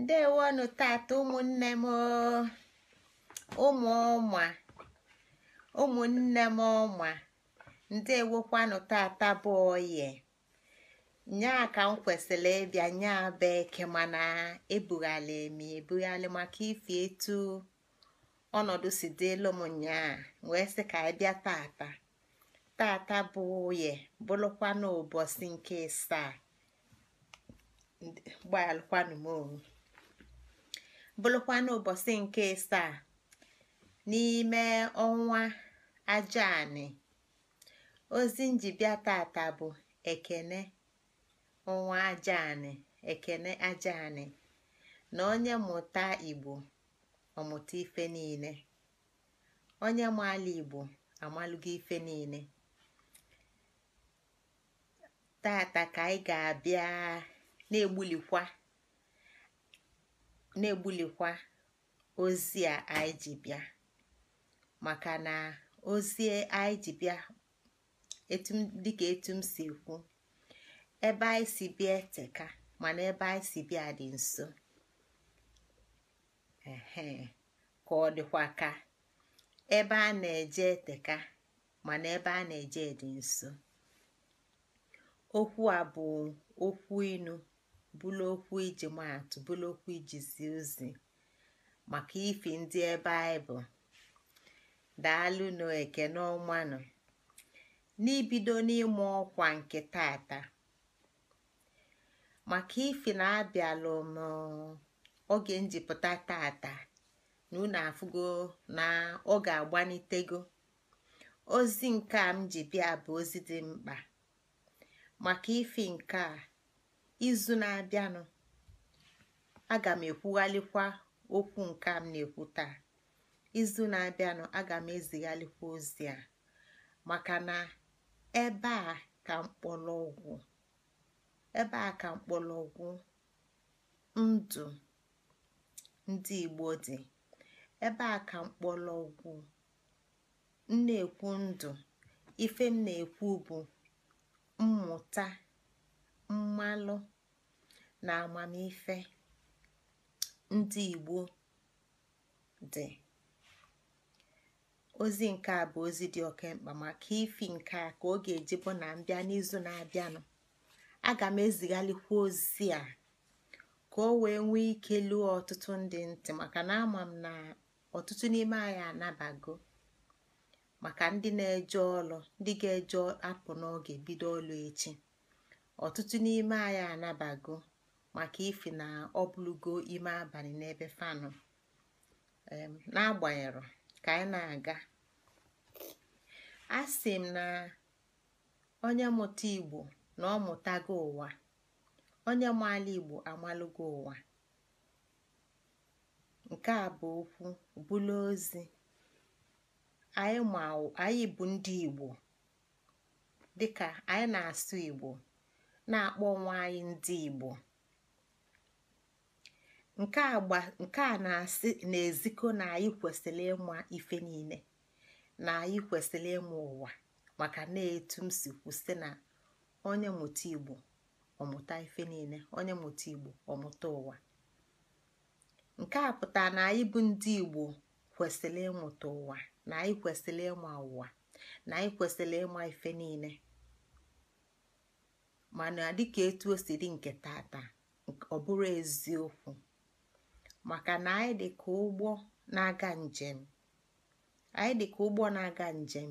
ndewonụ tata ụmụnne m ụmụ ọma ụmụnne m ọma ndewokwanụ tata bụ oye nya ka m kwesịrị ịbịa nyaa bụ eke mana ebughali m ebughali maka ife etu ọnọdụ si dịlụ m nyaa wee sị ka ịbịa tata tata bụ oye bụrụkwanụ ụbọchị nke ịsaa gbalụkwanụ m onwe bụrụkwa n'ụbọchị nke a n'ime ọnwa Ajanị ozi njibịa tata bụ ekene ọnwa Ajanị ekene Ajanị na onye mụta Igbo ọmụta ife niile onye maala Igbo amalụgo ife niile tata ka anyị ga-abịa na-egbulikwa na-egbulikwa ozi a anyị ji bịa maka na ozi anyị ji bịa dịka etu m si ekwu ebe anyị si bịa eteka mana ebe anyị si bịa dị nso ka ọ dịkwa ka ebe a na-eje eteka mana ebe a na-eje dị nso okwu a bụ okwu inu bụlụ okwu iji maatụ bụlụ okwu iji zie ozi maka ifi ndị ebe anyị bụ daalụnụ ekene ọmanụ n'ibido n'ịmụ ọkwa nke tata maka ifi na abịalụ m oge njipụta tata na unu afụgo na ọ ga-agbanitego ozi nke a m ji bịa bụ ozi dị mkpa maka ifi nke a izu na-abịanụ aga m ekwughalikwa okwu nke m na-ekwu taa izu na-abịanụ aga m ezighalikwa ozi a maka na ebe a ka mkpọrọgwụ ebe a ka mkpọrọgwụ ndụ ndị Igbo dị ebe a ka mkpọlọgwụ m na-ekwu ndụ ife m na-ekwu bụ mmụta mmalụ na amamife ndị igbo dị ozi nke a bụ ozi dị oke maka ifi nke a ka ọ ga-eji bụ na mbịa n'izu na-abịanụ aga m ezigharịkwa ozi a ka o wee nwee ike luo ọtụtụ ndị ntị maka na ama m na ọtụtụ n'ime anyị anabago maka ndị na-eje ọlụ ndị ga-eje apụ n'oge bido ọlụ echi ọtụtụ n'ime anyị anabago maka ife na ọ ime abalị n'ebe fanụ n'agbanyeghị ka anyị na-aga a sị m na onye mụta igbo na ọ mụtago ụwa onye maala igbo amalụgo ụwa nke a bụ okwu bụla ozi anyị bụ ndị igbo dịka anyị na-asụ igbo na-akpọ onwe anyị ndị Igbo nke a na-asị na-ezikọ na anyị kwesịrị ịma ife niile na anyị kwesịrị ịma ụwa maka na-etu m si kwụsị na onye mụta Igbo ọmụta ife niile onye mụta Igbo ọmụta ụwa nke a pụtara na anyị bụ ndị Igbo kwesịrị ịmụta ụwa na anyị kwesịrị ịma ụwa na anyị kwesịrị ịma ife niile mana dịka etu o si dị nke tata ọ bụrụ eziokwu maka na anyị dị ka ụgbọ na-aga njem anyị dị ka ụgbọ na-aga njem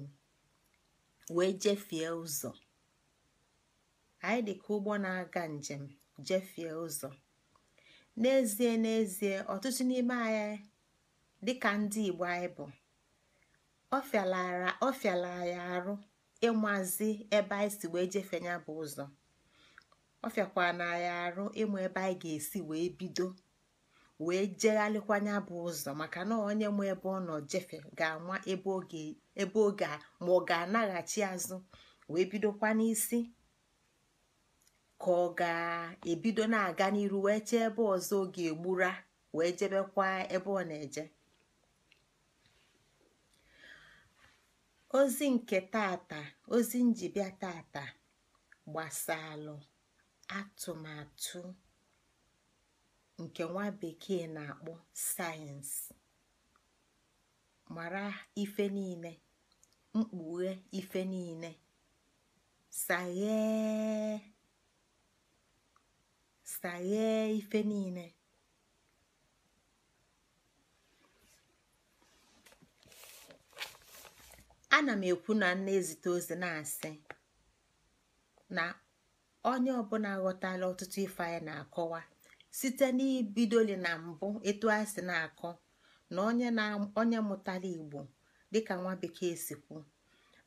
wee jefie ụzọ anyị dị ka ụgbọ na-aga njem jefie ụzọ n'ezie n'ezie ọtụtụ n'ime anyị dịka ndị Igbo anyị bụ ọ fịala ya arụ ịmazi ebe anyị si wee jefenya bụ ụzọ ọ na ya arụ ịmụ ebe anyị ga-esi wee bido wee jegharịkwanya bụ ụzọ maka na onye mụ ebe ọ nọ jefe ga-ama ebe oge ma ọ ga-anaghachi azụ wee bidokwa n'isi ka ọ ga-ebido na-aga n'iru wee chee ebe ọzọ oge ga-egbura wee jebekwa ebe ọ na-eje ozi nke tata ozi tata gbasalụ Atụmatụ nke nwa bekee na-akpụ sayensị: Mara ife niile, mkpùghe ife niile, saghee saghee ife niile ana m ekwu na nna ezite ozi na-asị na onye ọbụla ghọtala ọtụtụ ife anyị na-akọwa site n'ibidoli na mbụ etu a sị na-akọ na onye onye mụtara igbo dịka nwa bekee si kwu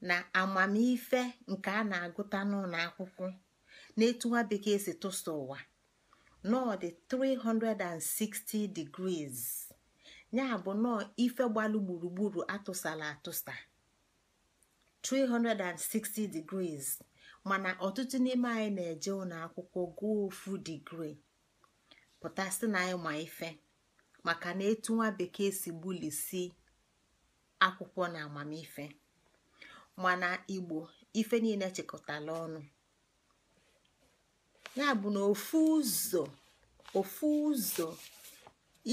na amamife nke a na-agụta n'ụlọ akwụkwọ na etu nwa bekee si tụsa ụwa nọọ dị 360 degrees ya bụ nọọ ife gbalụ gburugburu atụsala atụsa 360 degrees. mana ọtụtụ n'ime anyị na-eje ụlọ akwụkwọ gụọ ofu digri pụta sị na anyị ma ife maka na etu nwa bekee si gbulisi akwụkwọ na amamife mana igbo ife niile chekọtala ọnụ ya bụ na ofu ụzọ ofu ụzọ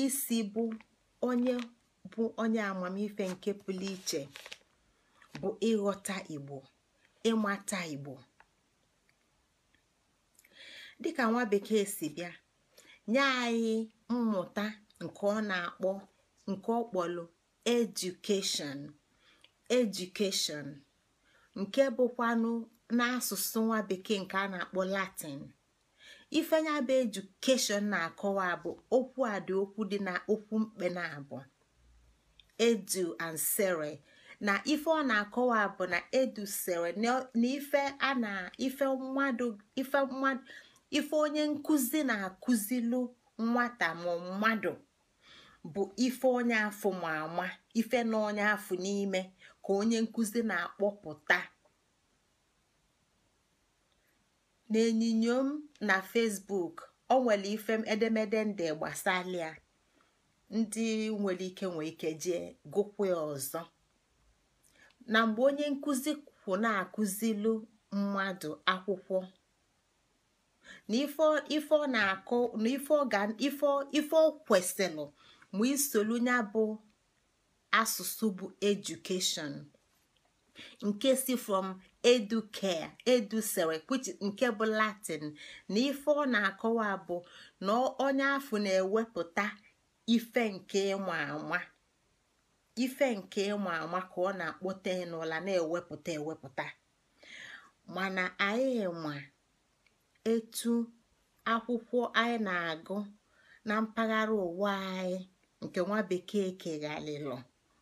isi bụ onye bụ onye amamife nke pụlụ iche bụ ịghọta igbo ịmata igbo dịka nwa bekee si bịa nye anyị mmụta nke ọ na-akpọ nke ọ kpọlụ edukeshọn edukeshọn nke bụkwanụ n'asụsụ nwa bekee nke a na-akpọ latin ifenya bụ edukeshọn na-akọwa bụ okwu a dị okwu dị na okwu mkpe na abụ edu and sere na ife ọ na-akọwa bụ na edusere na ife a na ife mmadụ ife mmadụ ife onye nkụzi na-akụzilu nwata ma mmadụ bụ ife onye afụ ma ama ife na onye afụ n'ime ka onye nkụzi na-akpọpụta n'enyinyo m na Facebook ọ nwere ife edemede ndị gbasalia ndị nwere ike nwee ike jee gụkwa ọzọ na mgbe onye nkụzi kwụ na-akụzilu mmadụ akwụkwọ na ife ọ na-akụ na ife ọ kwesịrị ma isolu ya bụ asụsụ bụ edukeshọn nke si from educare edusere nke bụ latin na ife ọ na-akọwa bụ na onye afọ na-ewepụta ife nke ịma ama ife nke ịma ama ka ọ na-akpọte n'ụla na-ewepụta ewepụta mana anyị ma etu akwụkwọ anyị na-agụ na mpaghara ụwa anyị nke nwa bekee keghalịlụ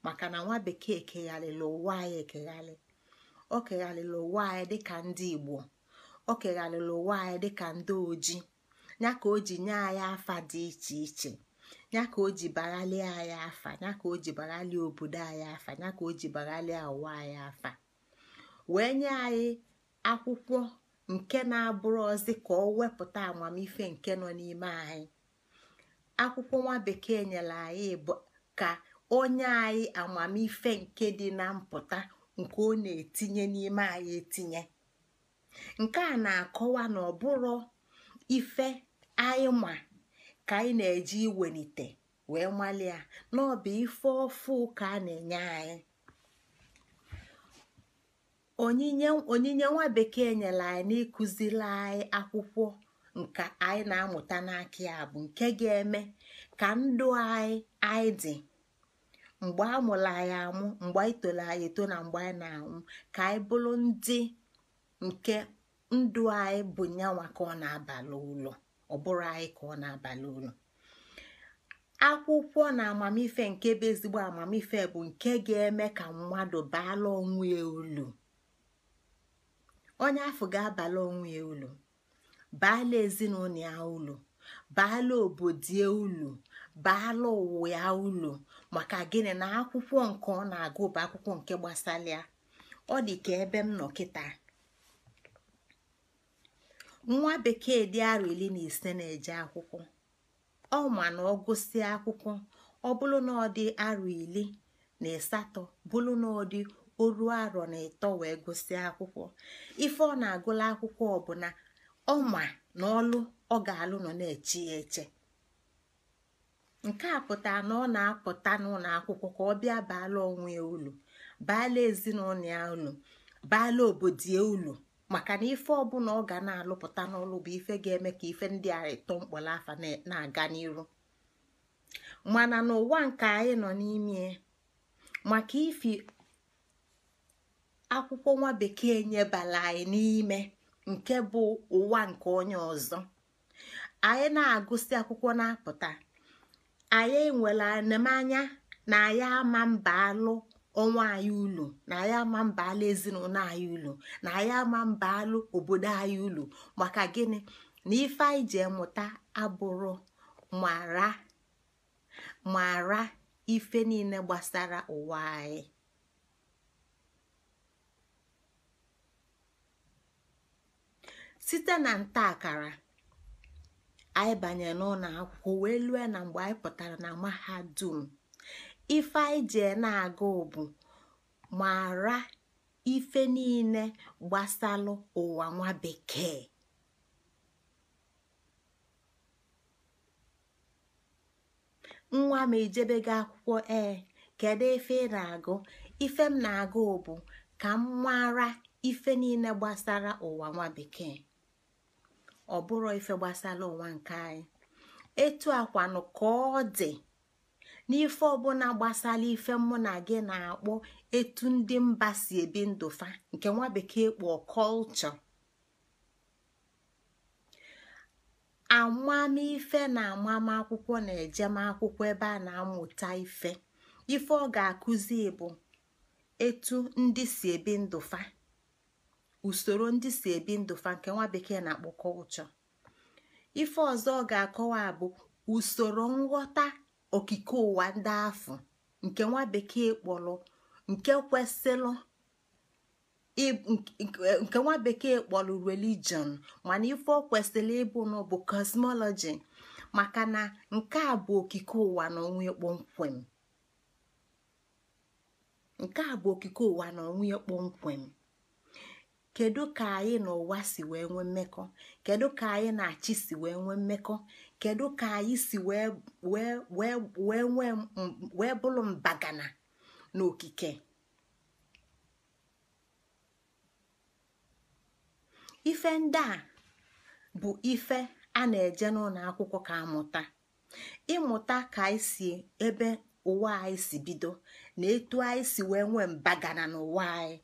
maka na nwa bekee keghalịlụ ụwa anyị ekeghalị o keghalịlụ ụwa anyị dịka ndị igbo o keghalịlụ ụwa anyị dịka ndị oji ya ka o ji nye anyị afa dị iche iche ya ka o ji baghalie anyị afa ya ka o ji baghalie obodo anyị afa ya ka o ji baghalie ụwa anyị afa wee nye anyị akwụkwọ nke na-abụrụ ozi ka ọ wepụta amamife nke nọ n'ime anyị akwụkwọ nwa bekee nyere anyị bụ ka onye anyị amamife nke dị na mpụta nke ọ na-etinye n'ime anyị etinye nke a na-akọwa na ọ bụrụ ife anyị ma ka anyị na-eji iwelite wee ọ n'ọbụ ife ọfụ ka a na-enye anyị onyinye nwa bekee nyere anyị n'ịkụziri anyị akwụkwọ nke anyị na-amụta n'aka ya bụ nke ga-eme ka ndụ anyị anyị dị mgbe a mụrụ anyị amụ mgbe anyị toro anyị eto na mgbe anyị na-anwụ ka anyị bụrụ ndị nke ndụ anyị bụ nyanwa ka ọ na-abalị ụlọ ọ bụrụ anyị ka ọ na-abalị ụlọ akwụkwọ na amamife nke bụ ezigbo amamife bụ nke ga-eme ka mmadụ baala onwe ya olu onye afọ ga-abala onwe ya ulu baala ezinụlọ ya ulu baala obodo ya ulu baala ụwa ya ulu maka gịnị na akwụkwọ nke ọ na-agụ bụ akwụkwọ nke gbasara ya ọ dị ka ebe m nọ kịta nwa bekee dị arọ ili na ise na-eje akwụkwọ ọ ma na ọ gụsịa akwụkwọ ọ bụrụ na ọ dị arọ na asatọ bụrụ na ọ dị o ruo arọ na ịtọ wee gụsịa akwụkwọ ife ọ na-agụla akwụkwọ ọbụla ọma na ọlụ ọ ga-alụ nọ na-eche ya eche nke a pụtara na ọ na-apụta n'ụlọ akwụkwọ ka ọ bịa baala onwe ya ulu baala ezinụlọ ya ulu baala obodo ya ulu maka na ife ọbụla ọ ga na-alụpụta n'ọlụ bụ ife ga-eme ka ife ndị a ịtọ mkpọrọ na-aga n'iru mana n'ụwa nke anyị nọ n'ime maka ifi akwụkwọ nwa bekee nyebala anyị n'ime nke bụ ụwa nke onye ọzọ anyị na-agụsị akwụkwọ na-apụta anyị nwere anemanya na anyị ama mba alụ ọnwa anyị ụlọ na anyị ama mba alụ ezinụlọ anyị ụlọ na anyị ama mba alụ obodo anyị ụlọ maka gịnị na ife anyị ji emụta abụrụ mara mara ife niile gbasara ụwa anyị site na nta akara anyị banye n'ụlọ akwụkwọ wee lue na mgbe anyị pụtara na mahadum ife anyị ji na-aga bụ mara ife niile gbasalụ ụwa nwa bekee nwa m gị akwụkwọ ee kedu ife ị na-agụ ife m na-agụ bụ ka m mara ife niile gbasara ụwa nwa bekee ọ bụrụ ife gbasara ụwa nke anyị etu akwanụ ka ọ dị n'ife ọbụla gbasara ife mụ na gị na-akpọ etu ndị mba si ebi ndụfa nke nwa bekee kpọọ kọlchọ amamife na akwụkwọ na ejemakwụkwọ ebe a na-amụta ife ife ọ ga-akụzi bụ etu ndị si ebi ndụfa usoro ndị si ebi ndụ fa nke nwa bekee na-akpọ kọlchọ ife ọzọ ọ ga-akọwa bụ usoro nghọta okike ụwa ndị afọ nke nwa bekee kpọrọ nke kwesịrị nke nwa bekee kpọrọ religion mana ife ọ kwesịrị ịbụ nọ bụ cosmology maka na nke a bụ okike ụwa na onwe kpọmkwem nke a bụ okike ụwa na onwe kpọmkwem kedu ka anyị na ụwa si wee nwee mmekọ kedu ka anyị na achị si wee nwee mmekọ kedu ka anyị si wee bụrụ mbagana n'okike ife ndị a bụ ife a na-eje n'ụlọ akwụkwọ ka amụta ịmụta ka anyị si ebe ụwa anyị si bido na etu anyị si wee nwee mbagana n'ụwa anyị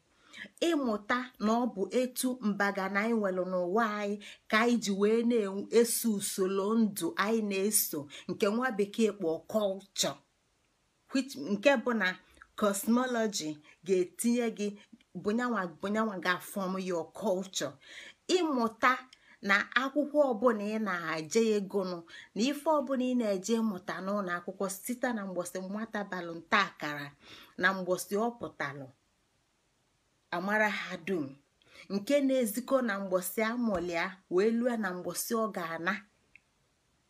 ịmụta na ọ bụ etu mbaga na anyị nwelụ n'ụwa anyị ka anyị ji wee na-eso usoro ndụ anyị na-eso nke nwa bekee kpọ kọlchọ nke bụ na kosmọlọji ga-etinye gị bụnyanwa ga-afọm yo kọlchọ ịmụta na akwụkwọ ọbụla ị na-eje ịgụnụ na ife ọbụla ị na-eje ịmụta n'ụlọ akwụkwọ site na mgbọsị nwata balụ nta akara na mgbọsị ọ pụtalụ amara ha dum nke na-ezikọ na mgbọsi amụlịa wee lue na mgbọsi ọ ga-ana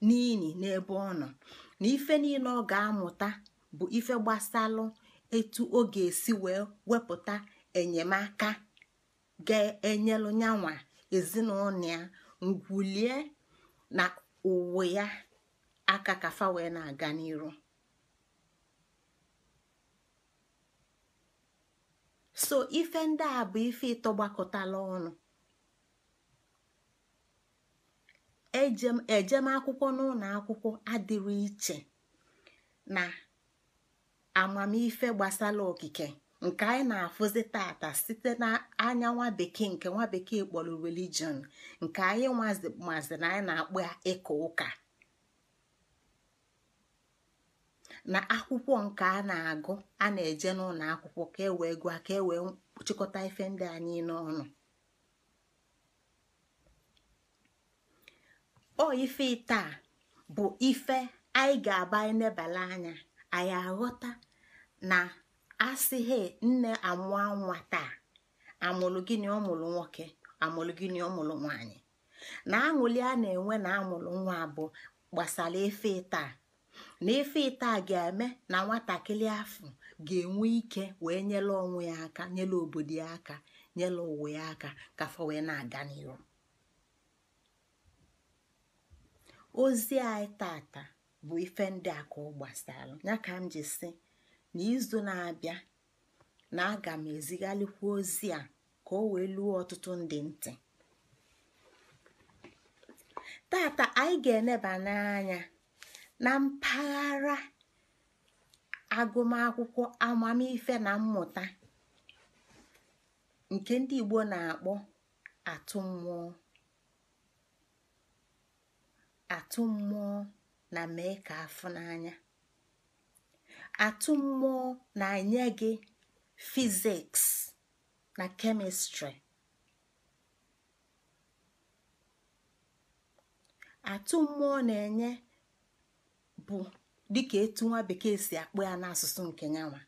n'ihi n'ebe ọ nọ na ife niile ọ ga-amụta bụ ife gbasalụ etu ọ ga-esi wee wepụta enyemaka ga-enyelụ nyanwa ezinụlọ ya ngwulie na uwe ya aka kafa wee na-aga n'iru so ife ndị a bụ ife ịtọ ọnụ ejem akwụkwọ n'ụlọ akwụkwọ adịrị iche na amamife gbasara okike nke anyị na-afụzi tata site n'anya nwa bekee nke nwa bekee kpọrọ religion nke anyị mazi na anyị na akpụ ya ịka ụka na akwụkwọ nke a na-agụ a na-eje n'ụlọ akwụkwọ ka e wee gụọ ka e wee chịkọta ife ndị anyị n'ọnụ o ife ite bụ ife anyị ga-aba enebala anya anyị aghọta na asịghị nne amụọ nwa taa amụlụ gịnị ọmụlụ nwoke amụlụ gịnị ọmụlụ nwanyị na aṅụli a na-enwe na amụlụ nwa bụ gbasara ife taa na ife ite ga-eme na nwatakịrị afọ ga-enwe ike wee nyere onwe ya aka nyere obodo ya aka nyere ụwa ya aka ka afọ wee na-aga n'iru ozi anyị tata bụ ife ndị a ka ọ gbasara ya ka m ji si na izu na-abịa na aga m ezigharịkwa ozi a ka o wee luo ọtụtụ ndị ntị tata anyị ga-eneba n'anya na mpaghara agụmakwụkwọ amamife na mmụta nke ndị Igbo na-akpọ atụmmụọ, atụmmụọ na mee ka afọ n'anya atụ na-enye gị fiziks na kemịstrị atụ na-enye bụ dịka etu nwa bekee si akpụ ya n'asụsụ nke nyanwa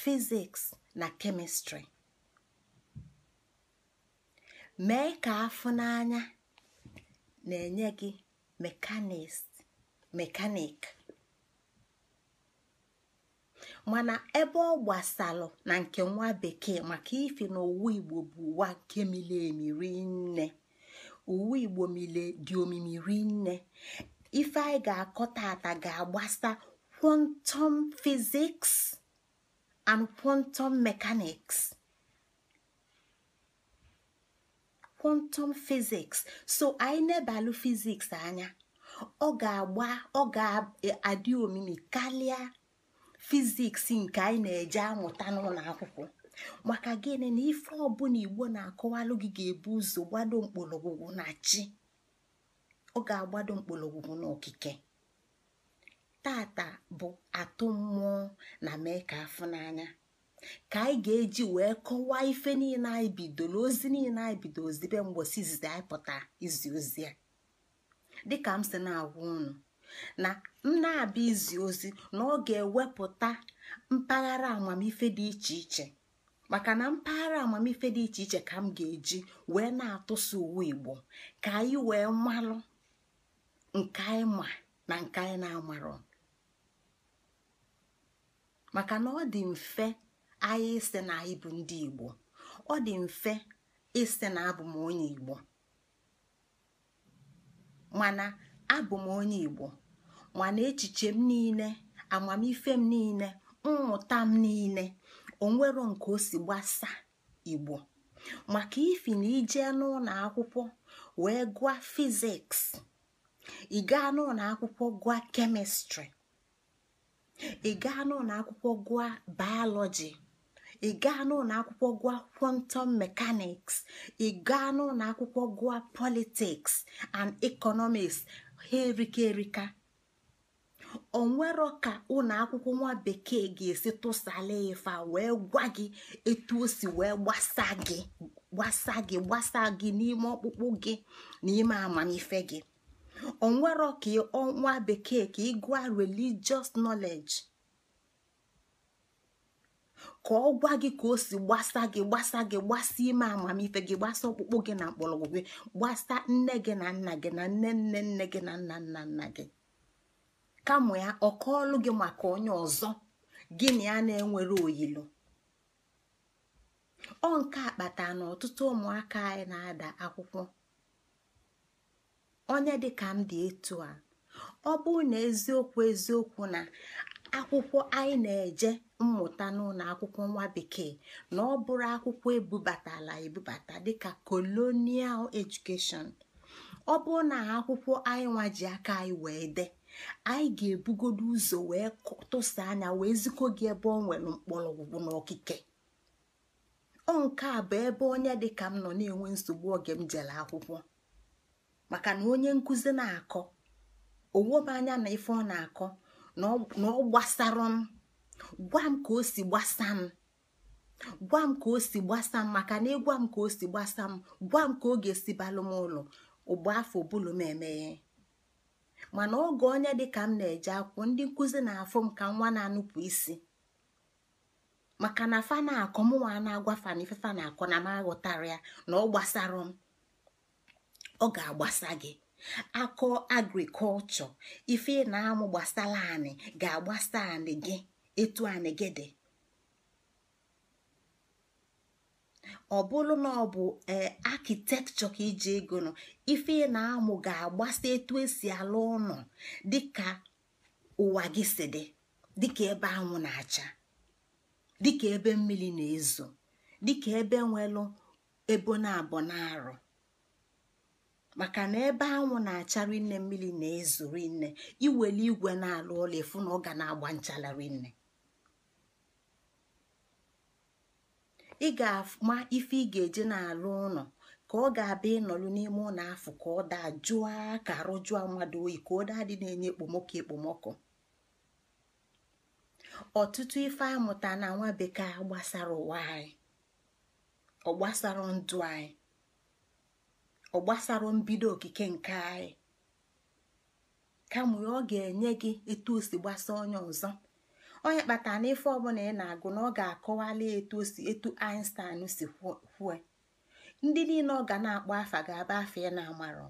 fiziks na kemịstrị mee ka afụ n'anya na-enye gị mekanik mana ebe ọ gbasalụ na nke nwa bekee maka ife na owu igbo bụ ụwa nke mile emiri nne uwe igbo mile dị omimiri nne ife anyị ga-akọ tata ga-agbasa quantum physics and quantum mechanics fiziks, so anyị nebalụ fiziks anya ọ ga-agba ọ ga-adị omimi karịa fiziks nke anyị na-eje amụta n'ụlọ akwụkwọ maka gịnị na ife ọbụla igbo na-akọwalụ gị ga-ebu ụzọ gbado mkpọrọgwụgwụ na chi ọ ga-agbado mkpọrọgwụ n'okike tata bụ atụ mmụọ na mee ka afụ n'anya ka anyị ga-eji wee kọwaa ife niile anyị bidoro ozi niile anyị bido ozibe mgbosi izizi anyị pụta izi ozi a dịka m si na-agwa unu na m na-abịa izi ozi na ọ ga-ewepụta mpaghara amamife dị iche iche maka na mpaghara amamife dị iche iche ka m ga-eji wee na atụsi uwe igbo ka anyị wee malụ nke anyị ma na nke anyị na-amarọ maka na ọ dị mfe anyị ịsị na anyị ndị igbo ọ dị mfe ịsị na abụ m onye igbo mana abụ m onye igbo mana echiche m niile amamife m niile mmụta m niile onwero nke o si gbasa igbo maka ifi na ije n'ụlọ akwụkwọ wee gụọ fiziks ị gaa n'ụlọ akwụkwọ gụọ kemịstrị ị gaa n'ụlọ akwụkwọ gụọ bayọlọji ị gaa n'ụlọ akwụkwọ gụọ kwọntọm mekaniks ị gaa n'ụlọ akwụkwọ gụọ politiks and ekonomiks ha erika erika nwere ka ụlọ akwụkwọ nwa bekee ga-esi tụsala ịfa wee gwa gị etu o si wee gbasa gị gbasa gị gbasa gị n'ime ọkpụkpụ gị na ime amamife gị onwere ka ọnwa bekee ka ị gụọ religious knowledge ka ọ gwa gị ka o si gbasa gị gbasa gị gbasa ime amamife gị gbasa ọkpụkpụ gị na mkpọrọgwụ gị gbasa nne gị na nna gị na nne nne nne gị na nna nna nna gị kamụ ya ọ kọọlụ gị maka onye ọzọ gị na ya na-enwere oyilo ọ nke akpata na ọtụtụ ụmụaka anyị na-ada akwụkwọ onye dịka m dị etu a ọ bụrụ na eziokwu eziokwu na akwụkwọ anyị na-eje mmụta n'ụlọ akwụkwọ nwa bekee na ọ bụrụ akwụkwọ ebubatala ebubata dịka colonial education ọ bụrụ na akwụkwọ anyị nwa ji aka anyị wee dee anyị ga-ebugodo ụzọ wee tụsa anya wee zikọ gị ebe ọ nwere mkpọrọgwụgwụ n'okike ọ nke a bụ ebe onye dịka m nọ na-enwe nsogbu oge m jere akwụkwọ maka na onye nkụzi na-akọ m anya na ife ọ na-akọ na ọ gbasara m gwa m ka o si gbasa m gwa m ka o si gbasa m maka na ịgwa m ka o si gbasa m gwa m ka ọ ga-esi balụ m ụlọ ụgbọ afọ bụlụ m emeghe mana oge onye dịka m na-eje akwụkwọ ndị nkụzi na-afụ m ka nwa na-anụpụ isi maka na fa na-akọ mụnwa na-agwa fa na ife na-akọ na m aghọtara ya na ọ gbasara m ọ ga-agbasa gị akọ agrikọlchọ ife na-amụ gbasara anị ga-agbasa anị gị etu anị gị dị ọ bụrụ na ọ bụ e, akitekchọ ka iji ego nọ ife na-amụ ga-agbasa etu esi alụ ụlọ dịka ụwa gị si dị dịka ebe anwụ na-acha dịka ebe mmiri na-ezo dịka ebe nwelụ ebo na abọ na-arụ maka na ebe anwụ na-achara nne mmiri na-ezuru nne iweli igwe na-alụ ụlọ efu na ọ ga na-agba nchalarị nne ị ga-ama ife ị ga-eje na-alụ ụlọ ka ọ ga-abịa ịnọlụ n'ime ụlọ afọ ka ọ daa jụọ ka arụjụọ mmadụ oyi ka ọ daa dị na-enye ekpomọkụ ekpomọkụ ọtụtụ ife amụta na nwa bekee gbasara ụwa anyị ọ gbasara ndụ anyị ọ gbasara mbido okike nke anyị kama ọ ga-enye gị etu o si gbasa onye ọzọ onye kpatara na ife ọbụla ị na-agụ na ọ ga-akọwali etu o si etu Einstein si kwue ndị niile ọ ga na-akpọ afa ga-aba afa ị na-amarọ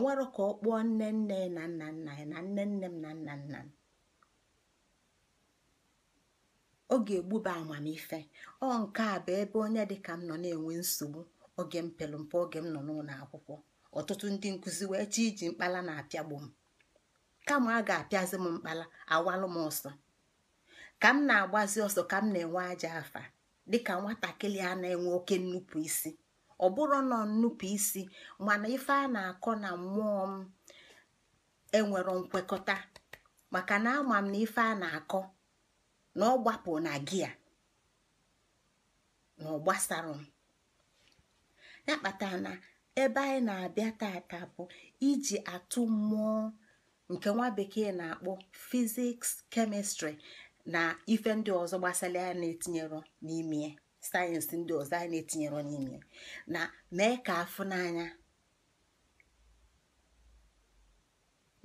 nwere ka ọ kpụọ nne nne na nna nna ya na nne nne m na nna nna m ọ ga-egbuba amamife ọ nke a bụ ebe onye dịka m nọ na-enwe nsogbu oge m pelu mpe oge m nọ n'ụlọ akwụkwọ ọtụtụ ndị nkụzi wee chi iji mkpala na-apịagbu m kama a ga-apịazi m mkpala awalụ m ọsọ ka m na-agbazi ọsọ ka m na-enwe aja afa dịka nwatakịrị a na-enwe oke nnupụ isi ọ bụrụ nọ nnupụ isi mana ife a na-akọ na mmụọ m enwere nkwekọta maka na ama m na ife a na-akọ na ọ gbapụ na gia na ọ gbasara m ya kpatara na ebe anyị na-abịa tata bụ iji atụ mmụọ nke nwa na-akpọ fiziks kemịstrị na ife ndị ọzọ gbasara ya na-etinyere n'ime sayensị ndị ọzọ anyị na-etinyere n'ime na mee ka afụ n'anya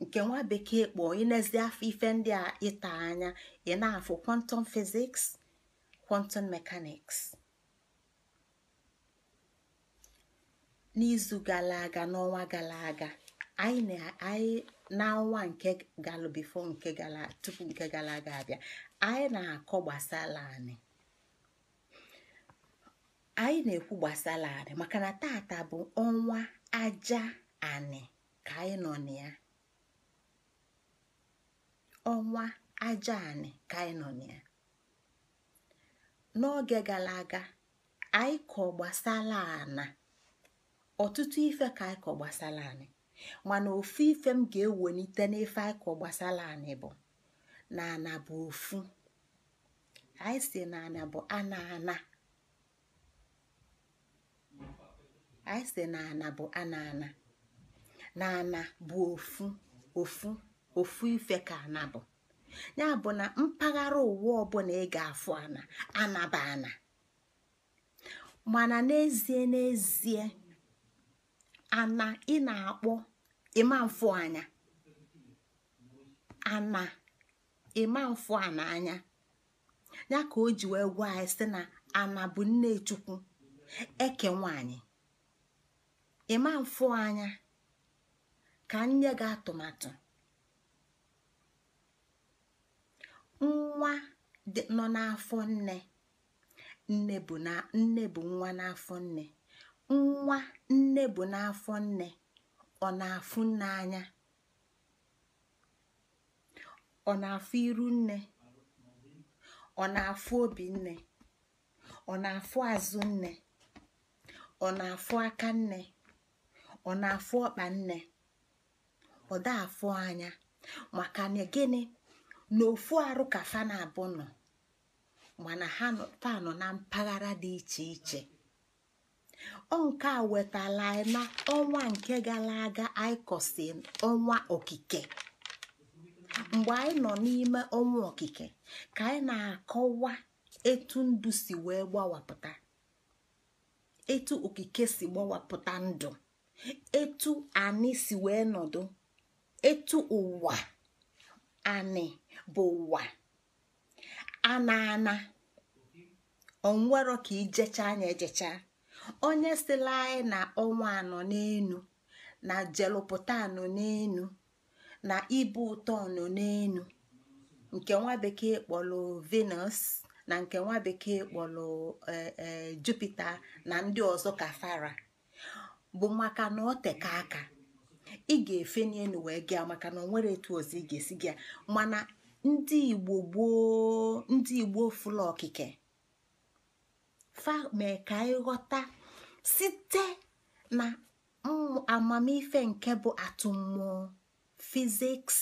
nke nwa bekee kpọọ inezi afọ ife ndị a ịta anya ị na-afụ kwantum fiziks quantum mekaniks n'izu gara aga n'ọnwa gara aga anyị n'ọnwa nke galụbifo nke gara tupu nke gara aga abịa anyị na-akọ gbasara anyị anyị na-ekwu gbasara anyị maka na tata bụ ọnwa aja anị ka anyị nọ na ya ọnwa aja anị ka anyị nọ na ya n'oge gara aga anyị kọ gbasara anyị. ọtụtụ ife ka ịkọ gbasara anyị mana ofu ife m ga-ewelite n'ife ịkọ gbasara anyị bụ na ana bụ ofu anyị si na ana bụ ana ana anyị si bụ ana ana na ana bụ ofu ofu ofu ife ka ana bụ ya bụ na mpaghara ụwa ọbụla ị ga-afụ ana anaba ana mana n'ezie n'ezie ana ị na-akpọ ịmamfụ anya ana ịmamfụ ana anya ya ka o ji wee gwa anyị sị na ana bụ nne chukwu eke nwanyị ịmamfụ anya ka nye gị atụmatụ nwa nọ n'afọ nne nne bụ nwa n'afọ nne Nwa nne bụ n'afọ nne, ọ na-afụ nne anya, ọ na-afụ iru nne, ọ na-afụ obi nne, ọ na-afụ azụ nne, ọ na-afụ aka nne, ọ na-afụ ọkpa nne, ọ da-afụ anya maka na gịnị ofu arụ ka fa na-abụ nọ mana ha fa nọ na mpaghara dị iche iche Onke nke a wetala anyị na ọnwa nke gara aga anyị kọsi ọnwa okike mgbe anyị nọ n'ime ọnwa okike ka anyị na-akọwa etu ndụ si wee gbawapụta etu okike si gbawapụta ndụ etu anyị si wee nọdụ etu ụwa anyị bụ ụwa ana ana onwero ka ijecha anya ejecha onye sila anyị na ọnwa anọ n'enu na jelụpụta anọ n'enu na ibu ụtọ anọ n'enu nke nwa bekee kpọrọ venus na nke nwa bekee kpọrọ e, e, jupita na ndị ọzọ ka fara bụ maka na ọ teka aka ị ga-efe n'elu wee gịa maka na ọ nwere etu ọzọ ị ga-esi gịa mana ndị igbo gboo ndị igbo okike fa mee ka site na amamife nke bụ atụmmụọ fiziks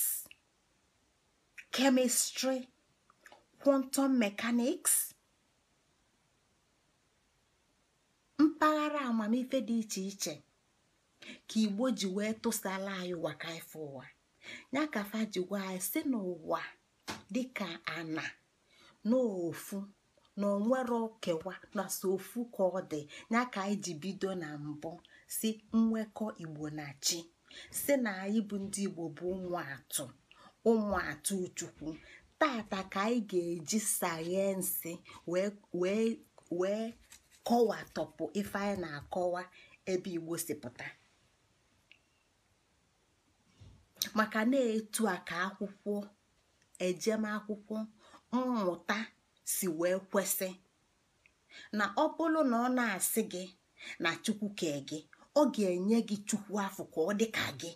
kemistri kwọntọm mekaniks mpaghara amamife dị iche iche ka igbo ji wee tụsala anyị waka ife ụwa ya ka fa ji gwa anyị si n'ụwa dịka ana n'ofu na onwere okewa na so ofu ka ọ dị ya ka anyị ji bido na mbụ si nwekọ igbo na chi si na anyị bụ ndị igbo bụ ụmụ atụ ụmụ atụ chukwu tata ka anyị ga-eji sayensị wee kọwatọpụ ife anyị na-akọwa ebe igbo si pụta maka na-etu a ka akwụkwọ ejemakwụkwọ mmụta si wee kwesị na ọ bụrụ na ọ na-asị gị na chukwu kee gị ọ ga-enye gị chukwu afọ ka ọ dị ka gị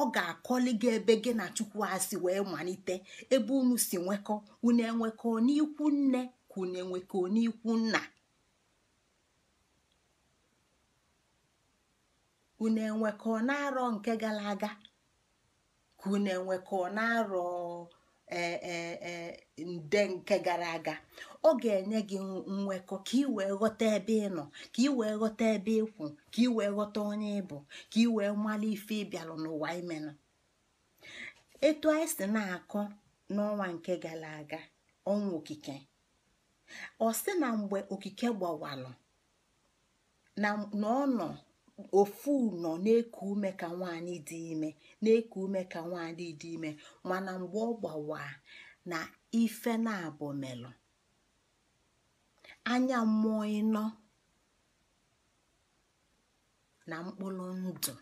ọ ga-akọli gị ebe gị na chukwu asị wee malite ebe unu si nwekọ unu enwekọ n'ikwu nne ka unu enwekọ n'ikwu nna unu enwekọ na-arọ nke gara aga ka unu na-arọ E, e, e, nde nke gara aga ọ ga-enye gị nnwekọ ka ị wee ghọta ebe ị nọ ka ị wee ghọta ebe ịkwụ ka ị wee ghọta onye ịbụ ka ị wee mara ife ịbịalụ n'ụwa imenụ etu anyị si na-akọ n'ọnwa nke gara aga ọnwa okike ọ si na mgbe okike gbawalụ na ọ nọ ofu nọ na-eku ume ka nwaanyị dị ime na-eku ume ka nwaanyị dị ime mana mgbe ọ gbawa na ife na-abụ melụ anya mmụọ ịnọ na mkpụrụ ndụ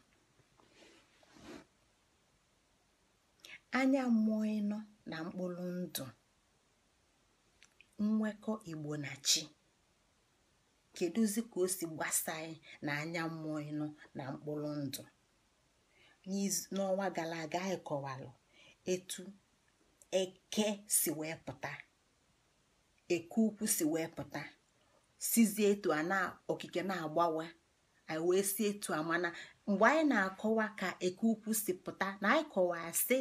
anya mmụọ ịnọ na mkpụrụ ndụ nnwekọ igbo na chi kedụzi ka o si gbasanyị na anya mmụọ ịnụ na mkpụrụ ndụ n'ọnwa gara aga anyị kọwalụ etu eke si wee pụta eke ukwu si wee pụta sizie etu a na okike na-agbawa anyị wee si etu a mana mgbe anyị na-akọwa ka eke ukwu si pụta na anyị kọwaa sị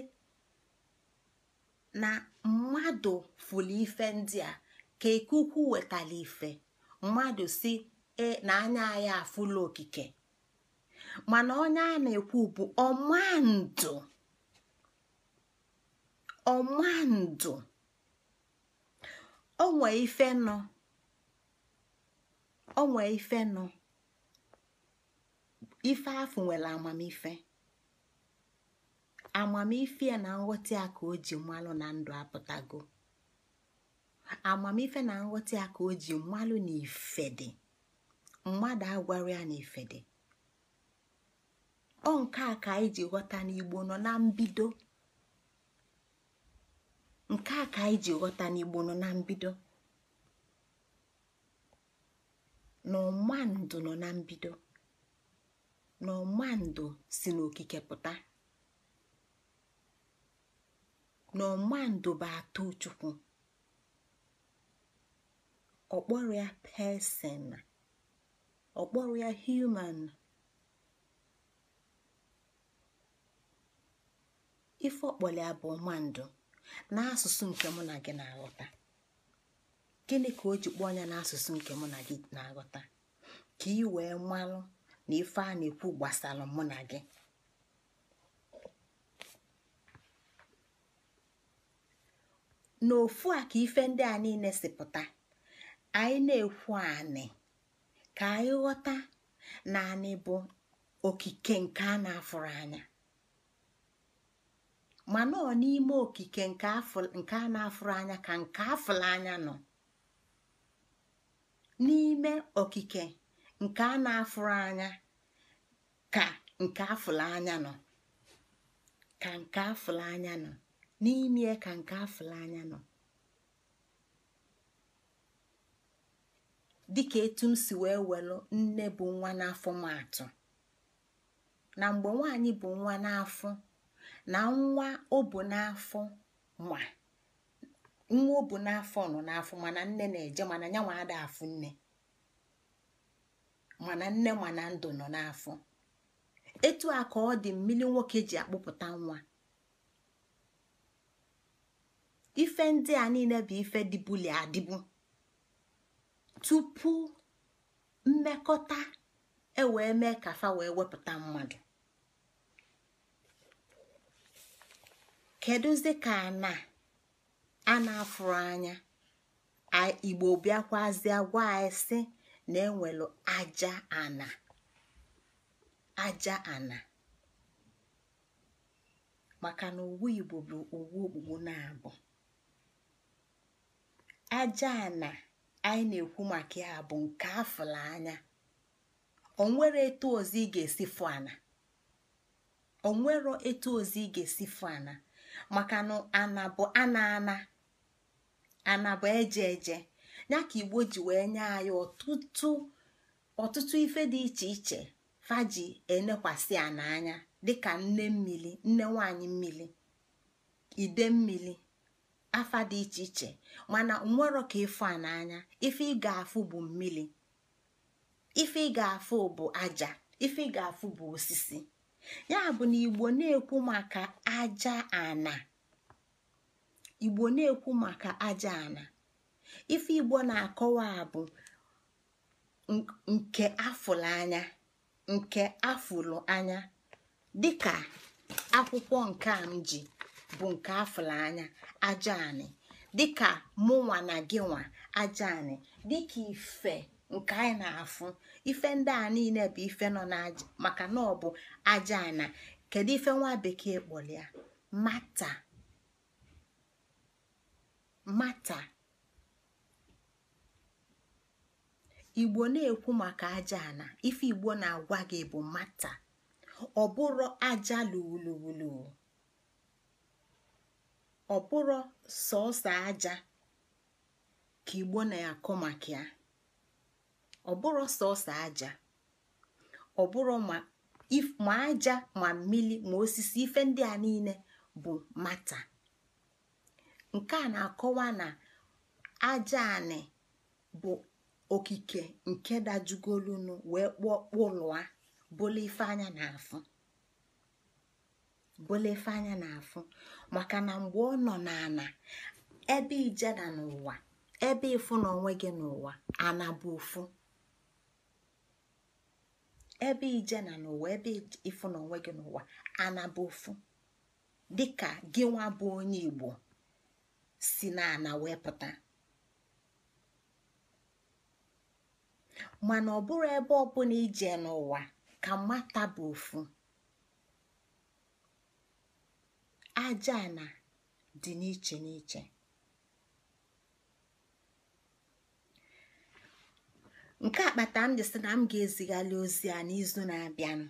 na mmadụ fụrụ ife ndị a ka eke ukwu wetara ife mmadụ si e, na anya ya afụla okike mana onye a na-ekwu bụ ọmandụ ọmandụ onwe ife nọ onwe ife nọ ife afụ nwere amamife amamife na nghọta ya ka o ji mmanụ na ndụ apụtago amamife na nghọta ya ka o ji mmalụ na mmadụ agwara ya na ife ọ nke a ka anyị ji ghọta n'igbo nọ na mbido nke a ka ghọta n'igbo nọ na mbido na ndụ nọ na mbido na ọma ndụ si n'okike pụta na ọma ndụ bụ atụ chukwu ọkpọrọ ya pesin ọkpọrọ ya human ife ọkpọli abụ mmadụ n'asụsụ nke mụ na gị na-aghọta gịnị ka o ji kpọọ anya n'asụsụ nke mụ na gị na-aghọta ka ị wee malụ na ife a na-ekwu gbasara mụ na gị n'ofu a ka ife ndị a niile si pụta anyị na-ekwu anị ka anyị ghọta na anị bụ okike nke a na-afụrụ anya mana ọ n'ime okike nke a na-afụrụ anya ka nke afụrụ anya nọ n'ime okike nke a na-afụrụ anya ka nke afụrụ anya nọ ka nke afụrụ anya nọ n'ime ka nke afụrụ anya nọ dịka etu m si wee welu nne bụ nwa n'afọ matụ na mgbe nwaanyị bụ nwa n'afọ na nwa o n'afọ ma nwa o n'afọ mana nne na-eje mana ya nwa ada afụ nne mana nne mana ndụ nọ n'afọ etu a ka ọ dị mmiri nwoke ji akpụpụta nwa ife ndị a niile bụ ife dịbuli adịbu tupu mmekọta ewee mee ka fa wee wepụta mmadụ kedụzi ka na a na-afụrụ anya igbo bịakwazie gwa anyị sị na enwelu aja ana aja ana maka na owu igbo bụ owu okpukpu na-abụ aja ana anyị na-ekwu maka ya bụ nke afụla anya onwere etu ozi ị ga-esi fu ana onwero etu ozi ị ga-esi fụ ana maka na ana bụ ana ana ana bụ eje eje ya ka igbo ji wee nye anyị ọtụtụ ife dị iche iche faji enekwasị ana anya dịka nne mmiri nne nwanyị mmili ide mmiri afa dị iche iche mana nwero ka ịfụ a n'anya ife ị ga-afụ bụ mmiri ife ị ga-afụ bụ aja ife ị ga-afụ bụ osisi ya bụ na igbo na-ekwu maka aja ana igbo na-ekwu maka aja ana ife igbo na-akọwa bụ nke afụlụ anya nke afụlụ anya dịka akwụkwọ nke a m ji bụ nke afụla anya aja anị dịka mụnwa na gị nwa aja anị dịka ife nke anyị na-afụ ife ndị a niile bụ ife nọ maka na ọ bụ aja kedu ife nwa bekee kpọrọ ya mata mata igbo na-ekwu maka aja ife igbo na-agwa gị bụ mata ọ bụrụ aja luwuluwulu ọ bụrọ sọọsọ aja ka igbo na-akụ maka ya ọ sọọsọ aja ma aja ma mmiri ma osisi ife ndị a niile bụ mata nke a na-akọwa na aja anị bụ okike nke dajugolunu wee kpụọ kpụlụa bụlụ ife anya na-afụ maka na mgbe ọ nọ n'ana ebe ijeda n'ụwa ebe ịfụ na gị n'ụwa ana ofu ebe ije na n'ụwa ebe ịfụ na onwe gị n'ụwa ana bụ ofu dịka gị nwa bụ onye Igbo si na wee pụta mana ọ ebe ọbụla ije n'ụwa ka mata bụ ofu aja na dị n'iche n'iche nke akpata m sị na m ga-ezigharị ozi a n'izu na-abịanụ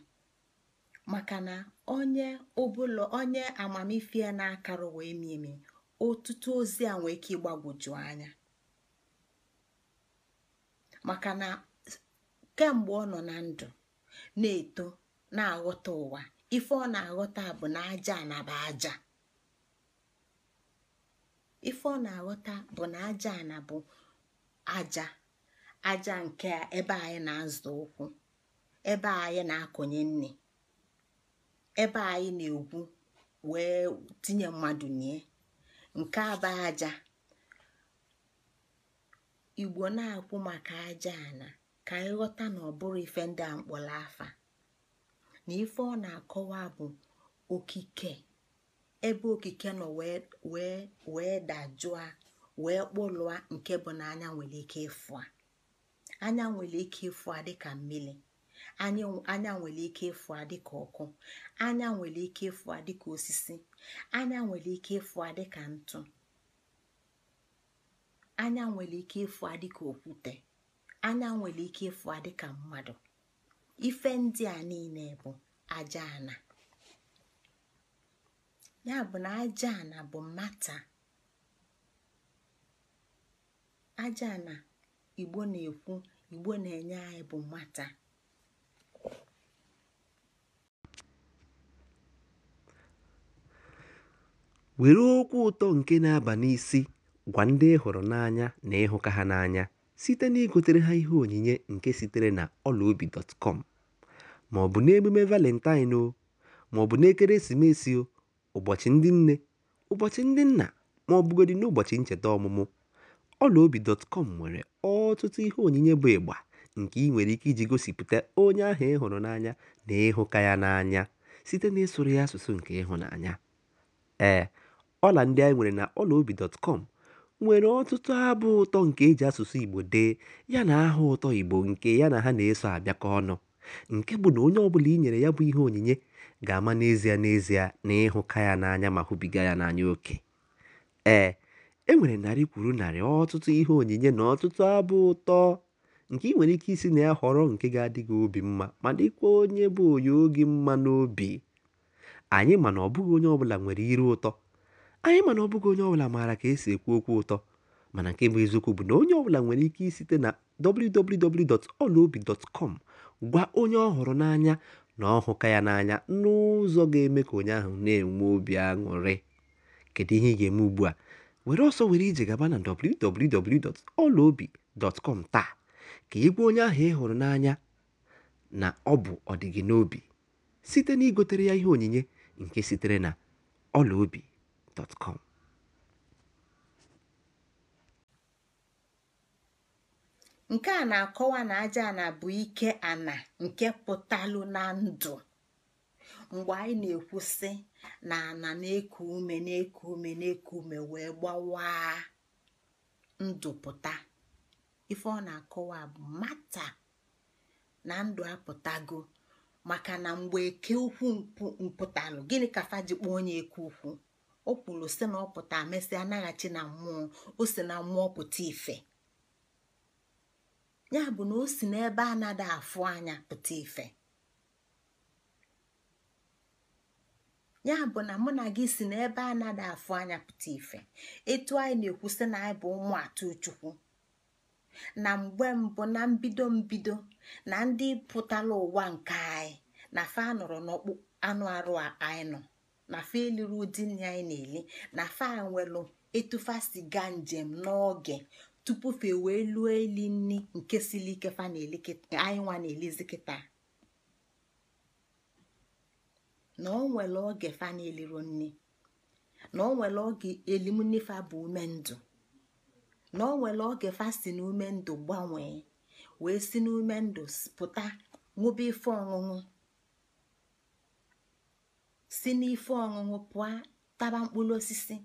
maka na onye ụbụlọ onye amamife ya na akarụ wee mimi ọtụtụ ozi a nwee ike ịgbagwoju anya maka na kemgbe ọ nọ na ndụ na-eto na-aghọta ụwa ife ọ na-aghọta bụ na aja anaba aja ife ọ na-aghọta bụ na aja anabụ aja aja nke ebe anyị na-azụ ụkwụ ebe anyị na akụnye nne ebe anyị na-egwu wee tinye mmadụ nie nke aba aja igbo na-akwụ maka aja ana ka anyị ghọta na ọ bụrụ ife ndị a mkpọrọ afa na ife ọ na-akọwa bụ okike ebe okike nọ wee dajụa wee kpụlụa nke bụ na anya nwere ike ịfụ anya nwere ike ịfụ dị dịka mmiri anya nwere ike ịfụ a dịka ọkụ anya nwere ike ịfụ a dịka osisi anya nwere ike ịfụ a dịka ntụ anya nwere ike ịfụ a okwute anya nwere ike ịfụ a mmadụ ife ndị a niile bụ aja ya bụ na aja bụ mata aja igbo na-ekwu igbo na-enye anyị bụ mata were okwu ụtọ nke na-aba n'isi gwa ndị ehuru hụrụ n'anya na ịhụka ha n'anya site n'igotere ha ihe onyinye nke sitere na ọlaobi dọtkọm bụ n'emume Valentine o, maọbụ n'ekeresimesi o, ụbọchị ndị nne, ụbọchị ndị nna ma ọ bụgodị n'ụbọchị ncheta ọmụmụ, ọlaobi.com nwere ọtụtụ ihe onyinye bụ ịgba nke ị nwere ike iji gosipụta onye ahụ ị hụrụ n'anya na ịhụka ya n'anya site ịsụrụ ya asụsụ nke ịhụnanya. Ee, ọla ndị anyị nwere na ọlaobi.com nwere ọtụtụ abụ ụtọ nke eji asụsụ Igbo dee yana aha ụtọ Igbo nke ya na ha na-eso abịakọ ọnụ. nke bụ na onye ọbụla i nyere ya bụ ihe onyinye ga-ama n'ezie n'ezie na ịhụka ya n'anya ma hụbiga ya n'anya oke ee e nwere narị kwuru narị ọtụtụ ihe onyinye na ọtụtụ abụ ụtọ nke ị nwere ike isi na ya họrọ nke ga-adị gị obi mma ma dịkwa onye bụ onye oge mma n'obi anyị mana ọbụghị onye ọbụla nwere iru ụtọ anyị mana ọbụghị onye ọbụla maara ka esi ekwu okwu ụtọ mana nke bụ eziokwu bụ na onye ọbụla nwere ike isite na www.olaobi.com Gwa onye ọ hụrụ n'anya na ọ hụka ya n'anya n'ụzọ ga-eme ka onye ahụ na-enwe obi aṅụrị. Kedu ihe ị ga-eme ugbu a? Were ọsọ were ije gaba na www.ọlaobi.com taa ka ị gwa onye ahụ ị hụrụ n'anya na ọ bụ ọdịgị n'obi site na igotere ya ihe onyinye nke sitere na ọlaobi.com nke a na-akọwa na aja na bụ ike ana nke pụtalụ na ndụ mgbe anyị na-ekwusị na ana na-eku ume na-eku ume na-eku ume wee gbawa ndụ pụta ife ọ na-akọwa bụ mata na ndụ apụtago maka na mgbe eke ukwu mpụtalụ gịnị ka faji kpọọ onye eke ukwu o kwuru si na ọ pụta mesịa anaghachi na mmụọ o si na mmụọ pụta ife ya bụ na o si n'ebe afụ anya pụta ife ya bụ na mụ na gị si n'ebe anada afụ anya pụta ife etu anyị na-ekwusị na anyị bụ ụmụ atụ chukwu na mgbe mbụ na mbido mbido na ndị pụtara ụwa nke anyị na fa nọrọ n'ọkpụ anụ arụ anyị nọ na fa eliri ụdị nri anyị na-eli na fa nwelụ etufa siga njem n'oge tupufe wee luo eli nni nke siri ike fa anyị nwa na-elizi kịta na o nwere oge fa na-eliru nni na o nwere oge elimnifa bụ ume ndụ na o nwere oge fa si na ume ndụ gbanwee wee si n'ume ndụ pụta ṅụba ife ọṅụṅụ si n'ife ọṅụṅụ pụọ taba mkpụrụ osisi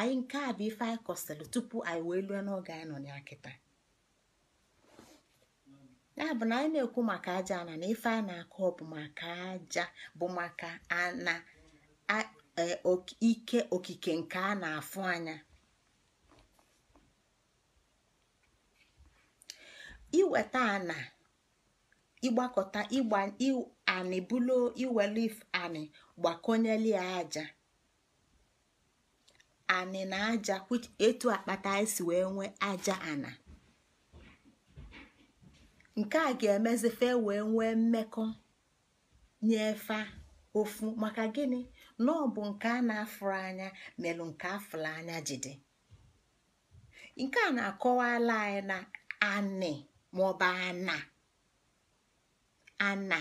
anyị nke a bụ ife anyị kọsịrị tupu anyị wee lue n'oge anyị nọ ya kịta ya bụ na anyị na-ekwu maka aja ana na ife a na-akọ bụ maka aja bụ maka ana e, ike okike nke a na-afụ anya iweta ana ịgbakọta ịgba anị bulu iwelu anị aja anị na aja etu akpata anyị si wee nwee aja ana nke a ga-emezi fe wee nwee mmekọ nyefe ofu maka gịnị na nke a na-afụrụ anya melụ nke afụrụ anya jide nke a na-akọwala anyị na anị maọbụ ana ana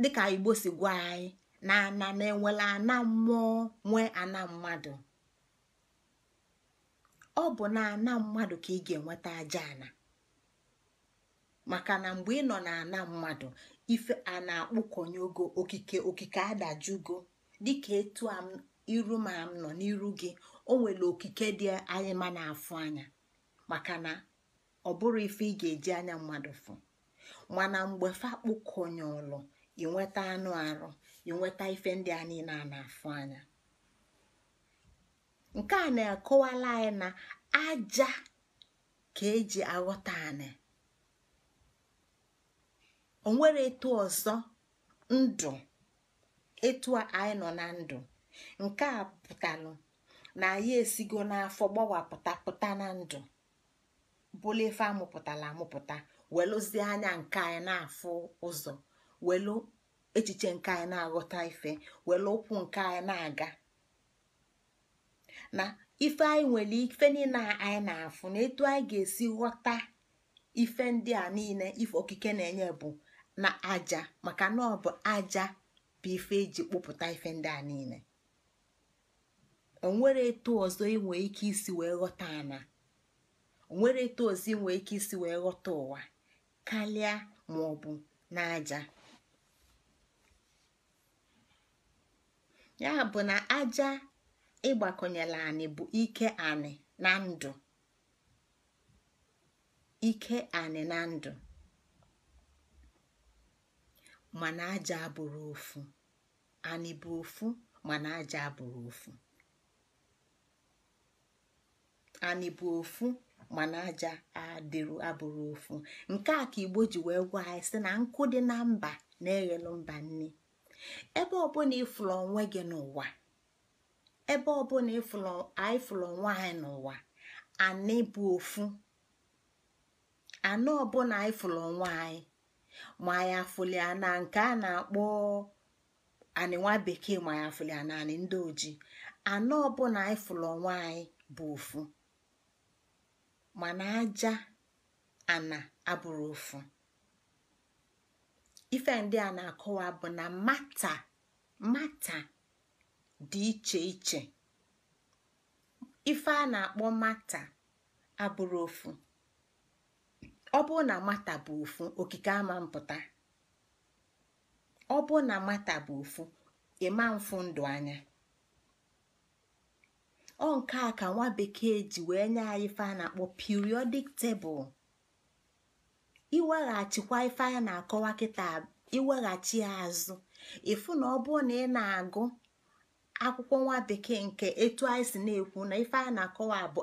dịka igbo si gwa anyị na ana na enwela ana mmụọ nwee ana mmadụ ọ bụ na ana mmadụ ka ị ga-enweta aja ana maka na mgbe ị nọ na ana mmadụ ife a na-akpụkọnye okike okike adajugo dịka etu iru ma m nọ n'iru gị o nwere okike dị anyị ma na-afụ anya maka na ọ bụrụ ife ị ga-eji anya mmadụ fụ mana mgbe ị inweta anụ arụ enweta ife ndị a niile a na-afụ anya nke a na-akọwala anyị na aja ka eji aghọta anyị o nwere etu ọzọ ndụ etu anyị nọ na ndụ nke a pụtalụ na anyị esigo n'afọ gbawapụta pụta na ndụ bụla ife amụpụtara amụpụta welụzie anya nke anyị na-afụ ụzọ welu echiche nke anyị na-aghọta ife were ụkwụ nke anyị na-aga na ife anyị nwere ife niile anyị na-afụ na etu anyị ga-esi ghọta ife ndị a niile ife okike na-enye bụ na aja maka na ọ bụ aja bụ ife eji kpụpụta ife ndị a niile onwere etu ọzọ inwe ike isi wee ghọta ike ụwa karịa ma ọ bụ n'aja ya bụ na aja ịgbakọnyela anị bụ ike anị na ndụ ike anị na ndụ mana aja abụrụ ofu anị bụ ofu mana aja abụrụ ofu anị bụ ofu mana aja abụrụ ofu nke a ka igbo ji wee gwa anyị sị na nkụ dị na mba na-eghelu mba nne ebe ọbụla ịfụrụ onwe gị n'ụwa ebe ọbụla anyị fụrụ onwe anyị n'ụwa anị bụ ofu anọ ọbụla anyị fụrụ onwe anyị ma anyị afụlia na nke a na-akpọ anị bekee ma anyị afụlia na anị ndị oji anọ ọbụla anyị fụrụ onwe anyị bụ ofu mana aja ana abụrụ ofu ife ndị a na-akọwa bụ na mata mata dị iche iche ife a na-akpọ mata abụrụ ofu ọ bụ na mata bụ ofu okike ama mpụta ọ bụ na mata bụ ofu ịma mfu ndụ anya ọ nke a ka nwa bekee ji wee nye anyị ife a na-akpọ periodic table iweghachikwa ife anyị na-akọwa kịta iweghachi azụ ịfụ na ọ bụrụ na ị na-agụ akwụkwọ nwa bekee nke etu anyị na-ekwu na ife anyị na-akọwa bụ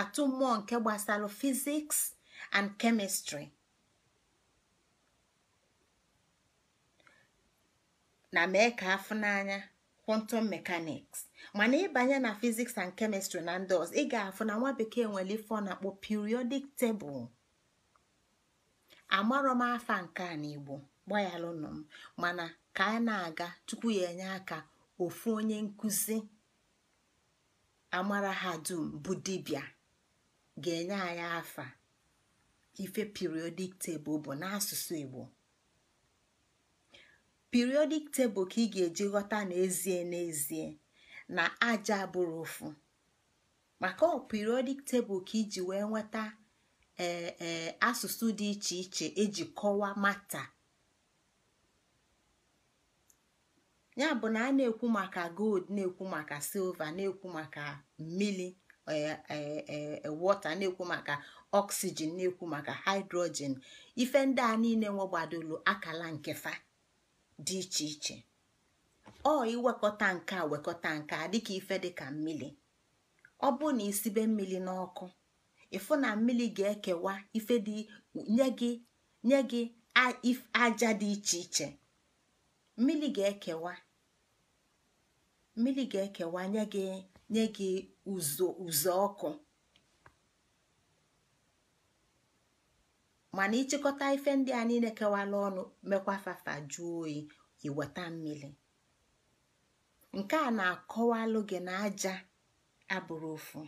atụ mmụọ nke gbasara fiziks and kemistri na mee ka afụ n'anya quantum mechanics mana ịbanye na fiziks and kemistri na ndị ọzọ ị ga-afụ na nwa bekee nwere ife na-akpọ periodic tebụl. amarọ afa nke a n'igbo gbaghalụnụ m mana ka a na-aga tupu ya enye aka ofu onye nkụzi amara ha dum bụ dibịa ga-enye anyị afa ife periodik tebụl bụ n'asụsụ igbo periodik tebụl ka ị ga-eji ghọta n'ezie n'ezie na aja bụrụ ofu maka ọ periodik tebụl ka iji wee nweta ee e, asụsụ dị iche iche eji kọwaa mata ya bụ na a na-ekwu maka gold na-ekwu maka silva na-ekwu maka mmili e, e, wọta na-ekwu maka oxygen na-ekwu maka hydrogen ife ndị a niile nwegbadolu akala nkefa dị iche iche ọ iwekọta nke a wekọta nke a dịka ife dịka mmili, ọ bụ na isibe mmili n'ọkụ ịfụ na mmiri ga-ekewa ife dị nye gị aja dị iche iche mmiri ga-ekewa nye gị nye gị mana ịchịkọta ife ndị a niile kewala ọnụ mekwa fafa jụọ oyi iweta mmiri nke a na-akọwalụ gị na aja abụrụ ofu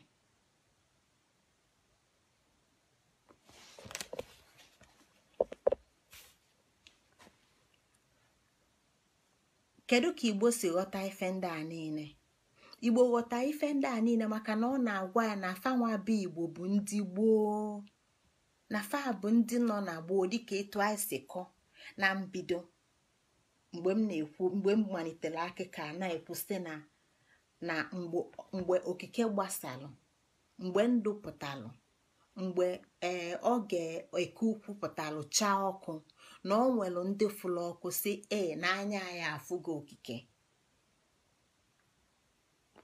kedu ka igbo si ghọta ife ndị a niile igbo ghọta ife ndị a niile maka na ọ na-agwa ya na afanwa bụ igbo bụ ndị gboo na fa bụ ndị nọ na gboo dịka etu anyị si kọ na mbido mgbe m na-ekwu mgbe m malitere akụkọ na-ekwu na na mgbe okike gbasalụ mgbe ndụ pụtalụ mgbe ee eh, oge eke ukwu pụtalụ chaa ọkụ na ọ nwere ndị fụlụ ọkụ si ee n'anya ya afụgo okike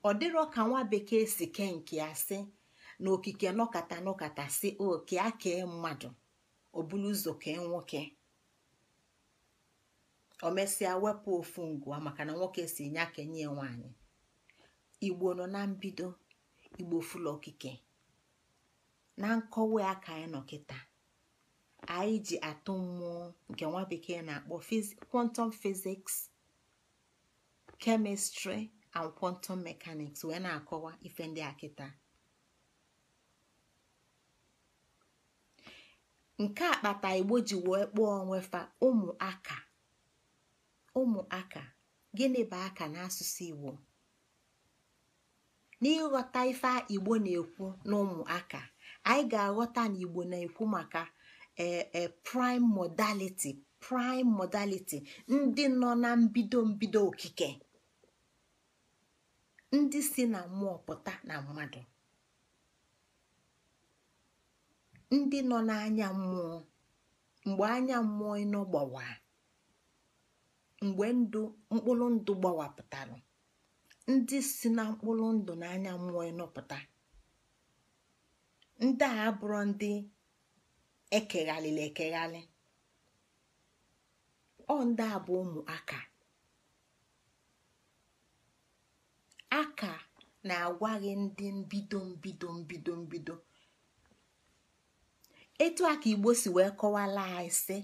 ọ dịrọ ka nwa bekee si kee nke ya si na okike nọkata nọkata si oke a kee e mmadụ obulu ụzọ kee nwoke o mesịa wepụ ofu ngwa maka na nwoke si aka kenye nwanyi igbo nọ na mbido igbo fụlụ okike na nkọwa ya ka nọ kịta anyị ji atụ mmụọ nke nwa bekee na-akpọ kwantum fiziks chemistry and kwantum mekaniks wee na-akọwa ife ndị akịta nke a kpata igbo ji wee kpọọ onwefa ụmụaka ụmụaka gịnị bụ aka n'asụsụ igbo n'ịghọta ife igbo na-ekwu n'ụmụaka anyị ga-aghọta na igbo na-ekwu maka prime modality prime modality ndị nọ na mbido mbido okike ndị si na mmụọ pụta na mmadụ ndị nọ n'anya mmụọ mgbe anya mmụọ ịnọ gbawa mgbe ndụ mkpụrụ ndụ pụtara ndị si na mkpụrụ ndụ na anya mmụọ ịnọpụta ndị a abụrụ ndị ekeghalịla ekeghali ọ ndị a bụ ụmụaka aka ka na-agwa gị ndị mbido mbido mbido mbido etu a ka igbo si wee kọwala anyị sị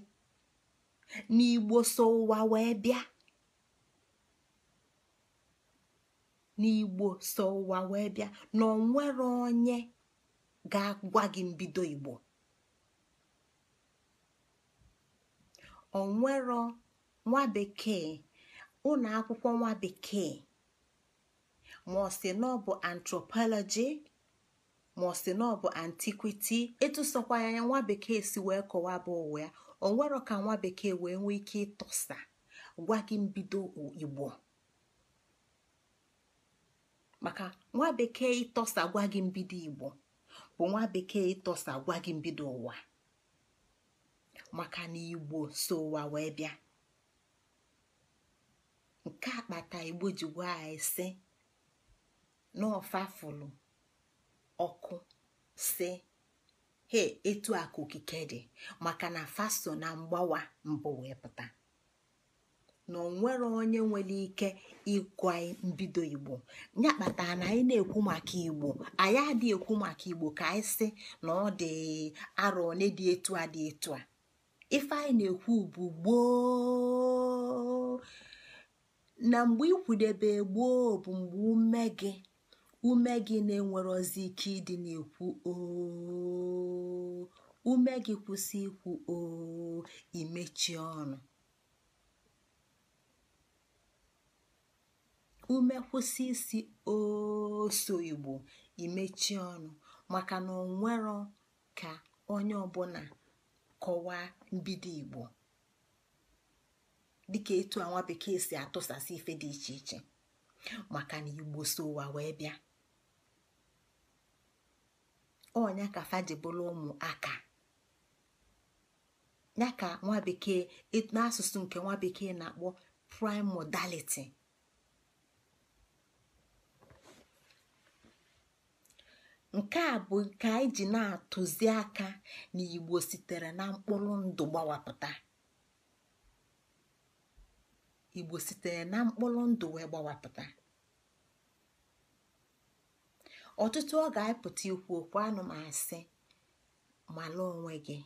n'igbo so ụwa wee bịa n'igbo so ụwa wee bịa na onwere onye ga-agwa gị mbido igbo onwero nwa bekee ụlọ akwụkwọ nwa bekee ma ọ sị na ọ bụ antropology ma ọ sị na ọ bụ antiquity etusokwa ya nwa bekee si wee kọwaa bụ ụwa ya onwero ka nwa bekee wee nwee ike ịtọsa gwa gị mbido igbo maka nwa bekee ịtọsa gwa gị mbido igbo bụ nwa bekee ịtọsa gwa gị mbido ụwa maka na igbo so ụwa wee bịa nke akpata igbo ji gwa anyị si n'ọfafụlụ ọkụ si he etu aka okike dị maka na faso na mgbawa mbụ wee pụta na onwere onye nwere ike ịkwa mbido igbo ya kpata na anyị na-ekwu maka igbo anyị adịghị ekwu maka igbo ka anyị si na ọ dị arọ one dị etu a dị etu a ife na-ekwu bụ gboo na mgbe ikwudebe gboo bụ mgbe ume gị ume gị na-enwerozi ike ịdị na-ekwu oo ume gị kwụsị ikwu oo imechi ọnụ ume kwụsị isi oso igbo imechi ọnụ maka na onwero ka onye ọbụla kọwaa mbido igbo dịka etu a nwa bekee si atụsasị ife dị iche iche maka na igbo so ụwa wee bịa ọnya ka fajibụla ụmụaka ya ka nwa bekee n'asụsụ nke nwa bekee na-akpọ primodality nke a bụ nke anyị ji na-atụzi aka na igbo sitere na mkpụrụ ndụ gbawapụta igbo sitere na mkpụrụ ndụ wee gbawapụta ọtụtụ ọ ga-apụta ikwu okwu anụmasị malụ onwe gị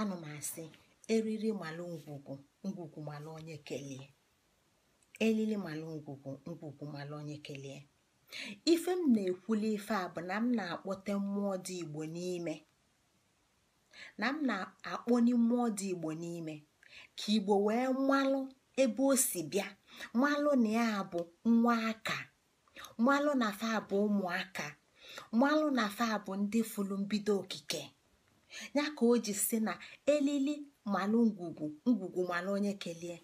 anụmasị eriri malụ ngwugwu ngwugwu malụ onye malụ ngwugwu ngwugwu malụ onye kelee ife m na-ekwuli ife a bụ na m na-akpọte mmụọ dị igbo n'ime na m na mmụọ dị igbo n'ime ka igbo wee mmalụ ebe o si bịa mmalụ na ya bụ nwa aka mmalụ na fa bụ ụmụaka mmalụ na fa bụ ndị fụlụ mbido okike ya ka o ji si na elili malụ ngwugwu ngwugwu malụ onye kelee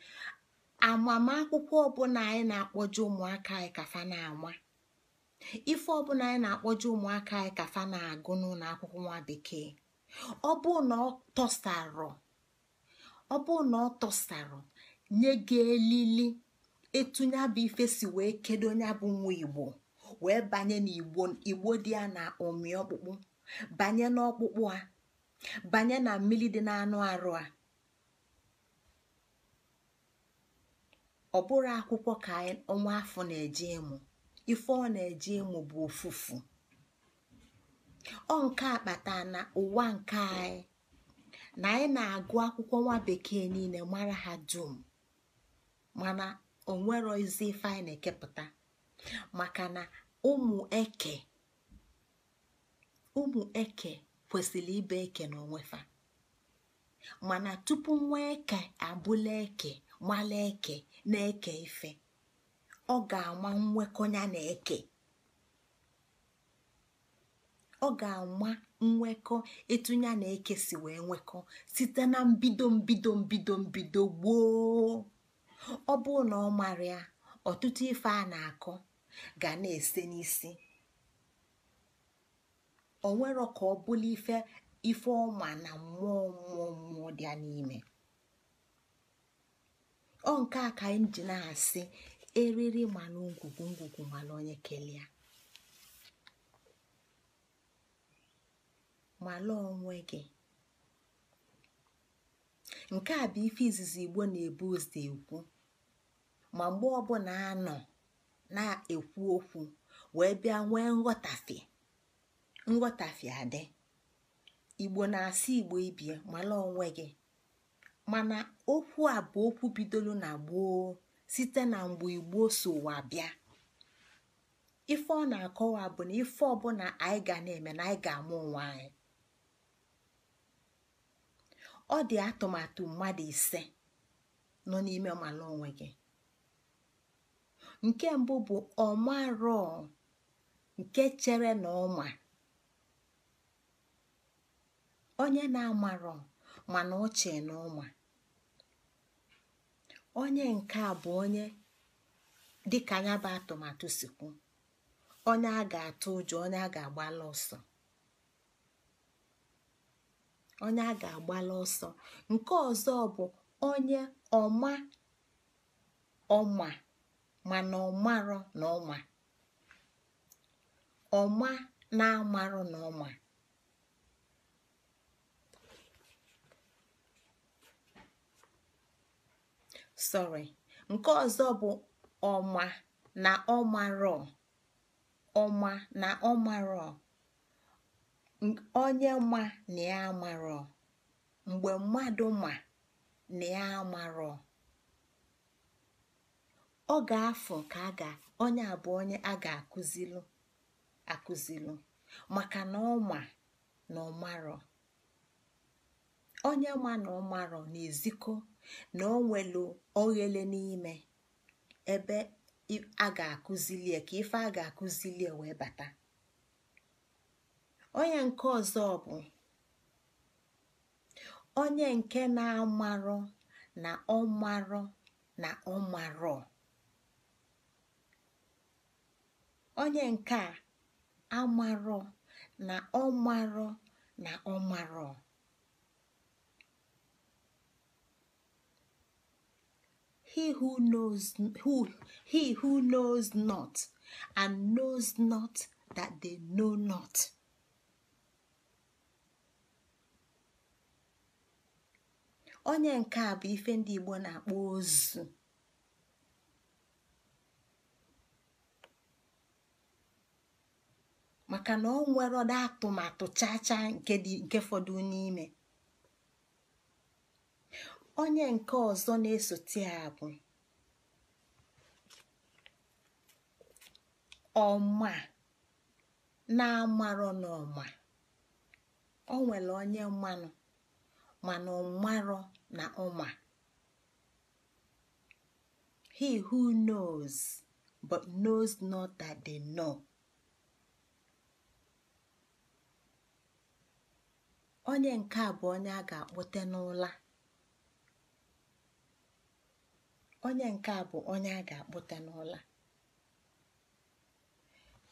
amamakwụkwọ ọbụla anyị na akpọju ụmụaka anyị ka fa na-ama ife ọbụla anyị na-akpọje ụmụaka anyị ka fa na-agụ n'ụlọ akwụkwọ nwa bekee ọ bụ na ọ tọsarọ ọ bụ na ọ tọsarọ nye gị elili etu nya bụ ife si wee kedo nya bụ nwa igbo wee banye n'igbo igbo dị ya na ụmị ọkpụkpụ banye n'ọkpụkpụ a banye na mmiri dị n'anụ arụ a ọ akwụkwọ ka ọnwa afọ na-eje ịmụ ife ọ na-eje ịmụ bụ ofufu ọ nke a kpata na ụwa nke anyị na anyị na-agụ akwụkwọ nwa bekee niile mara ha dum mana nwere ozi ife anyị na-ekepụta maka na ụmụ eke ụmụ eke kwesịrị ibe eke na onwefa mana tupu nwa eke abụla eke mala eke na-eke ife ọ ga-ama nwekọnya na eke ọ nwekọ etu ya na eke si wee nwekọ site na mbido mbido mbido mbido gboo ọ bụrụ na ọ mara ya ọtụtụ ife a na-akọ ga na-ese n'isi o nwero ka ọ bụla ife ife ọma na mmụọ mmụọ mmụọ dị ya n'ime ọ nke ka anyị ji eriri mana ngwugwu ngwugwu mana onye kelee mala onwe gị nke a bụ ife izizi igbo na-ebu ụzọ ekwu ma mgbe ọbụla nọ na-ekwu okwu wee bịa nwee nghọtafi adị igbo na-asị igbo ibie mala onwe gị mana okwu a bụ okwu bidoro na gboo site na mgbe igbo ụwa bịa ife ọ na-akọwa bụ na ife ọbụla anyị ga na-eme na anyị ga-amụ onwe anyị ọ dị atụmatụ mmadụ ise nọ n'ime ọmala onwe gị nke mbụ bụ ọmarọ nke chere na ọma onye na-amarọ mana ọ na ọma onye nke a bụ onye dịka ya bụ atụmatụ sikwu onye a ga-atụ ụjọ onye a ga-agbala ọsọ onye a ga-agbala ọsọ nke ọzọ bụ onye ọma ọma mana ọmarọ na ọma ọma na-amarọ na sorry nke ọzọ bụ ọma na ọmarọ ọma na ọmarọ onye ma na ya amarọ mgbe mmadụ ma na ya amarọ ọ ga-afọ ka a ga onye abụọ onye a ga-akụzilu akụzilu maka na ọma na ọmarọ onye ma na ọmarọ na-ezikọ na o nwelu oghele n'ime ebe a ga-akụzilie ka ife a ga-akụzilie wee bata onye nke ọzọ bụ onye nke na-amarọ na ọmarọ na ọmarọ onye nke a amarọ na ọmarọ na ọmarọ he who knows not and knows not that they know not onye nke a bụ ife ndị Igbo na-akpọ ozu maka na ọ nwere ọda atụmatụ chaa chaa nke fọdụ n'ime onye nke ọzọ na-esote ya bụ ọma na-amarọ n'ọma o nwere onye mmanụ mana ọmarọ na ọma he who knows but knows not that they know onye nke a bụ onye a ga-akpọte n'ụla onye nke a bụ onye a ga-akpụta n'ụlọ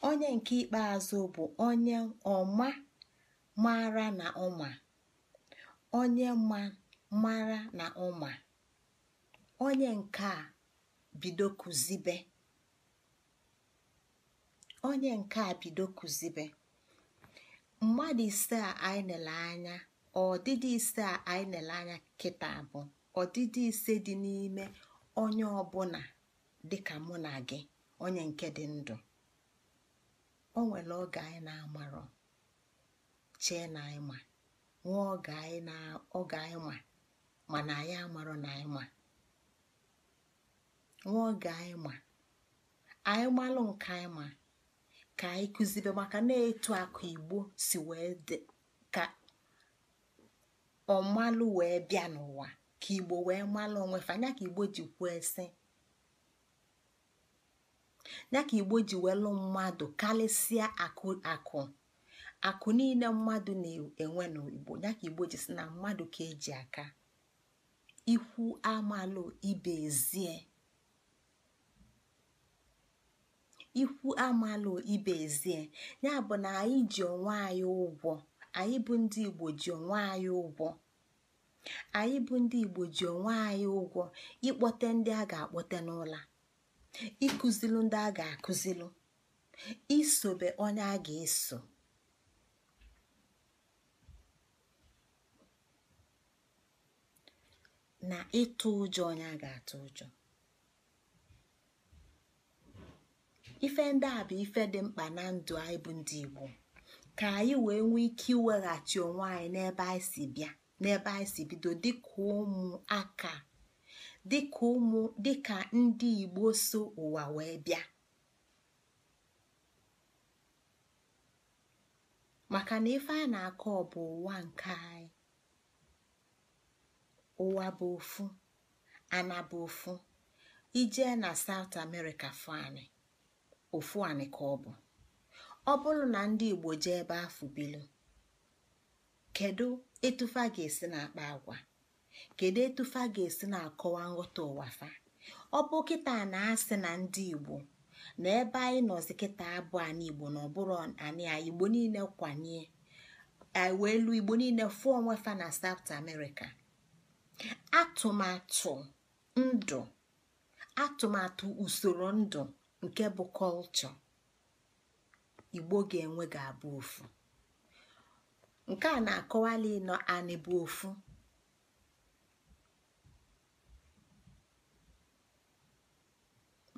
onye nke ikpeazụ bụ onye ọma mara na ụma onye ma mara na ụma onye nke a bido kụzibe onye nke a bido kụzibe mmadụ ise a anyị nele anya ọdịdị ise a anyị nele anya kịta bụ ọdịdị ise dị n'ime onye ọbụla dịka mụ na gị onye nke dị ndụ o nwere oge anyị na-amarọ chee na anyị ma nwee oge anyị ma mana anyị amarọ na anyị ma nwee oge anyị ma anyị malụ nke anyị ma ka anyị kụzibe maka na-etu akụ igbo si wee dị ka ọmalụ wee bịa n'ụwa ka igbo wee malụ onwe fa nya ka igbo ji kwuo esi ya ka igbo ji welụ mmadụ karịsịa akụ akụ akụ niile mmadụ na-enwe n'igbo ya ka igbo ji si na mmadụ ka eji aka ikwu amalụ ibe ezie ikwu amalụ ibe ezie ya bụ na anyị ji onwe anyị ụgwọ anyị bụ ndị igbo ji onwe anyị ụgwọ anyị bụ ndị igbo ji onwe anyị ụgwọ ịkpọte ndị a ga-akpọte n'ụla ịkụzilu ndị a ga-akụzilu isobe onye a ga-eso na ịtụ ụjọ onye a ga-atụ ụjọ ife ndị a bụ ife dị mkpa na ndụ anyị bụ ndị igbo ka anyị wee nwee ike iweghachi onwe anyị n'ebe anyị si bịa n'ebe anyị si bido dịka ụmụaka dịka ụmụ dịka ndị igbo so ụwa wee bịa maka na ife a na-akọ bụ ụwa nke anyị ụwa bụ ofu ana bụ ofu ijee na saut amerịka fani ofu anị ka ọ bụ ọ bụrụ na ndị igbo jee ebe afụ bilu kedu a ga-esi na-akpa agwa kedu a ga-esi na-akọwa nghọta ụwa fa ọ bụ kịta na-asị na ndị igbo na ebe anyị nọzi kịta abụ anyị igbo na ọbụrụ anyị igbo niile kwanye wee elu igbo niile fụọ onwe fa na South America atụmatụ ndụ atụmatụ usoro ndụ nke bụ kọlchọ igbo ga-enwe ga-abụ ofu nke a na-akọwali ịnọ anị bụ ofu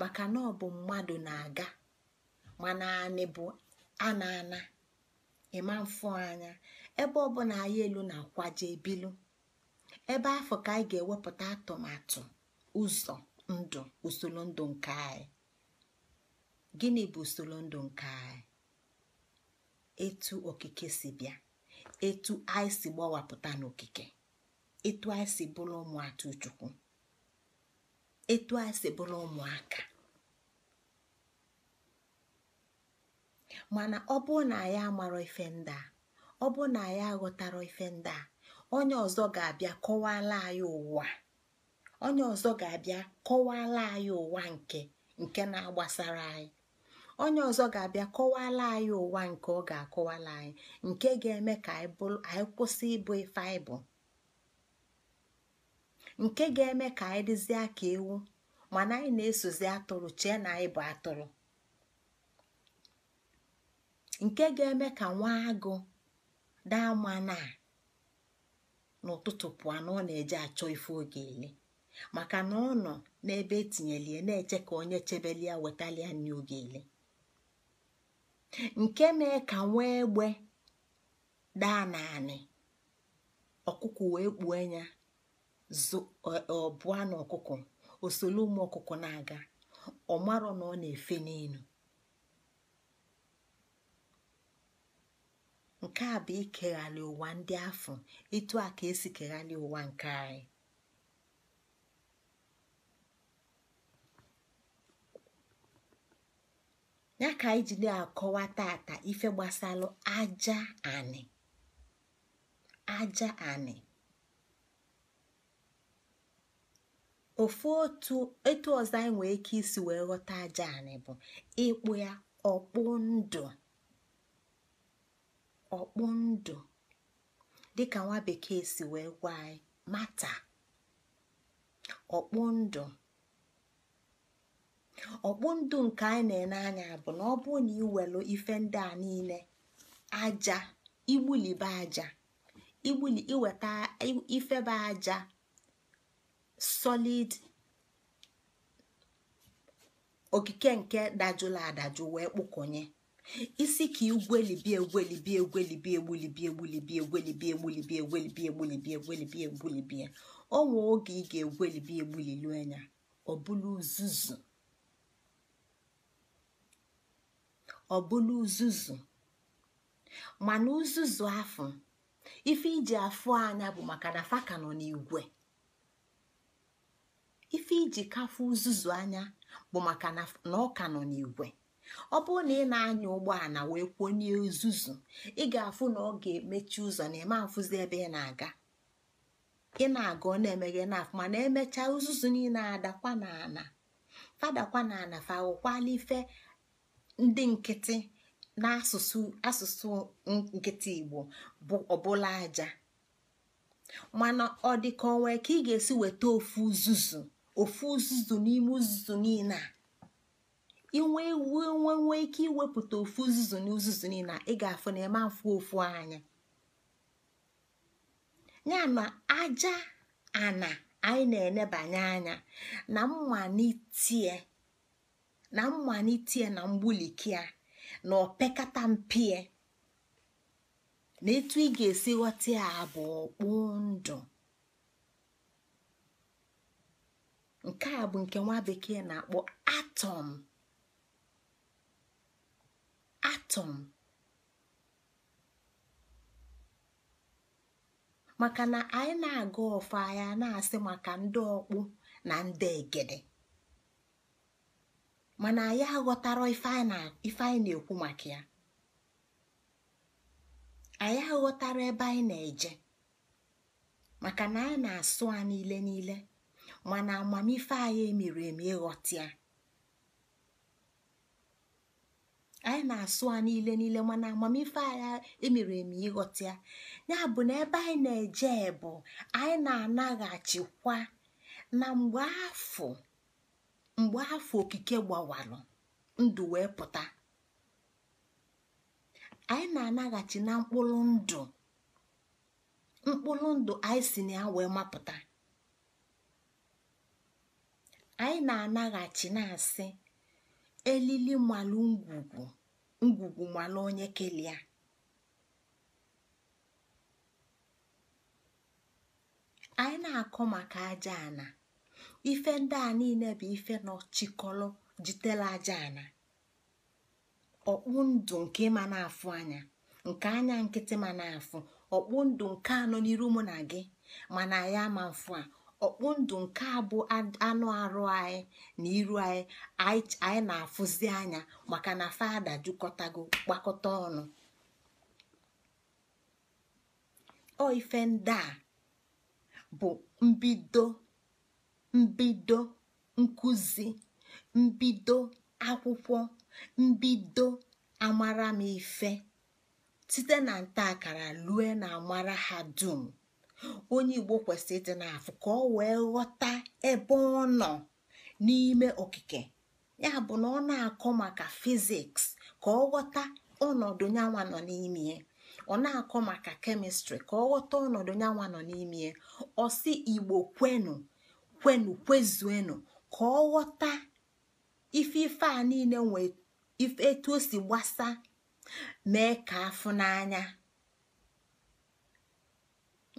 maka na ọ bụ mmadụ na-aga mana anị bụ ana ana ịma mfụ anya ebe ọ ọbụla anyị elu na-akwaje ebilu ebe afọ ka anyị ga-ewepụta atụmatụ ụzọ ndụ usoro ndụ nke anyị gịnị bụ usoro ndụ nke anyị etu okike si bịa etu anyị si gbawapụta n'okike etu anyị si bụrụ ụmụaka chukwu etu anyị si bụrụ ụmụaka mana ọ bụrụ na anyị amarọ ife ndị a ọ bụrụ na anyị aghọtara ife ndị a onye ọzọ ga-abịa kọwala anyị ụwa onye ọzọ ga-abịa kọwala anyị ụwa nke nke na-agbasara anyị onye ọzọ ga-abịa kọwala anyị ụwa nke ọ ga-akọwala anyị nke ga-eme ka anyị kwụsị ịbụ ife anyị bụ nke ga-eme ka anyị dịzie ka ewu mana anyị na-esozi atụrụ chee na anyị bụ atụrụ nke ga-eme ka nwa agụ daa mana n'ụtụtụ pụọ na ọ na-eje achọ ife oge ele maka na ọ nọ n'ebe etinyeli na-eche ka onye chebelia wetalia nri oge ele nke mee ka nwee egbe daa naanị ọkụkọ wee kpuo anya ọbụa na ọkụkọ osolu ụmụ ọkụkọ na-aga ọ marọ na ọ na-efe n'elu nke a bụ ikeghalị ụwa ndị afọ ịtụ a ka esi keghalị ụwa nke anyị ya ka anyị ji na-akọwa tata ife gbasalụ aja anị aja anị ofu otu etu ọzọ anyị nwee ike isi wee ghọta aja anị bụ ịkpụ ya ọkpụ ndụ ọkpụ ndụ dịka nwa bekee si wee gwa anyị mata ọkpụ ndụ ọkpụ ndụ nke anyị na-ene anya bụ na ọ bụrụ na iwelu ife ndị a niile aja igbulibe aja igbuli iweta ifebe aja solid okike nke dajụla adajụ wee kpụkọnye isi ka igwelibi egwelibi egwelibi egbulibi egbulibi egwelibi egbulibi egwelibi egbulibi egwelibi egbulibi onwe oge ị ga-egwelibi egbulili anya ọ uzuzu ọbụla uzuzu mana uzuzu afọ ife iji afụ anya bụ maka na faka nọ n'igwe ife iji kafụ uzuzu anya bụ maka na ọka nọ n'igwe ọ bụrụ na ị na-anya ụgbọala wee kwonye uzuzu ị ga-afụ na ọ ga-emechi ụzọ na eme afụzi ebe ị na-aga ị na-aga ọ na-emeghe n'afụ mana emechaa uzuzu niile adakwa n'ala fadakwa n'ala fa awụkwala ife ndị nkịtị n'asụsụ asụsụ nkịtị igbo bụ ọbụla aja mana ọ dị ka onwe ka ị ga-esi weta ofu uzuzu ofu uzuzu n'ime uzuzu niile a inwe iwu nwe ike iwepụta ofu uzuzu na uzuzu niile ị ga-afụ na eme afụ ofu anya ya na aja ana anyị na-enebanye anya na mmalite na tie na mgbulikia na opekata mpie na etu ị ga-esi ghọta ya bụ ọkpụ ndụ nke a bụ nke nwa bekee na-akpọ atọm atom maka na anyị na-aga ọfa ya na-asị maka ndị ọkpụ na ndị egede mana anyị aghọtara ife anyị na-ekwu maka ya anyị aghọtara ebe anyị na-eje maka na anyị na-asụ a niile niile mana amamife anyị emiri emi ịghọta anyị na-asụ a niile niile mana amamife anyị emiri emi ịghọta ya ya bụ na ebe anyị na-eje bụ anyị na-anaghachikwa na mgbe afọ mgbe afọ okike gbawalụ ndụ wee pụta anyị na-anaghachi na mkpụrụ ndụ mkpụrụ ndụ anyị si na ya wee mapụta anyị na-anaghachi na-asị elili malụ ngwugwu ngwugwu malụ onye kelee anyị na-akọ maka aja ana ife ndị a niile bụ ife nọ jitela aja ana ọkpụ ndụ nke ma na-afụ anya nke anya nkịtị ma na-afụ ọkpụ ndụ nke anọ n'iru mụ na gị mana ya ma mfụ a ọkpụ ndụ nke a bụ anụ arụ anyị na iru anyị anyị na-afụzi anya maka na fada jukọtago gbakọta ọnụ ọ ife ndị a bụ mbido mbido nkuzi, mbido akwụkwọ mbido amara m site na ntaakara lue na amara ha dum onye igbo kwesịrị ịdị n'afọ ka ọ wee ghọta ebe ọ nọ n'ime okike ya bụ na ọ na-akọ maka fiziks ka ọ ghọta ọnọdụ nyanwa nọ n'ime ya ọ na-akọ maka kemịstrị ka ọ ghọta ọnọdụ nyanwa nọ n'ime ya ọ si igbo kwenu kwenụ kwezuenụ ka ọ ghọta ife ife a niile nwe ife etu o si gbasa mee ka afụ n'anya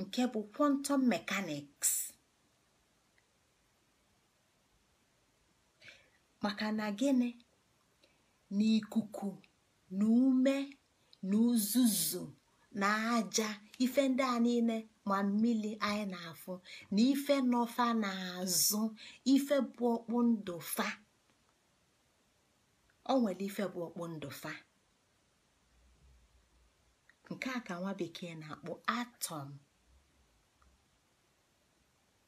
nke bụ quantum mechanics maka na gịnị na ikuku na ume na uzuzu na aja ife ndị a niile ma mmiri anyị na-afụ na ife nọfa na-azụ ife bụ ọkpụ ndụ fa o nwere ife bụ ọkpụ ndụ fa nke a ka nwa bekee na akpụ atọm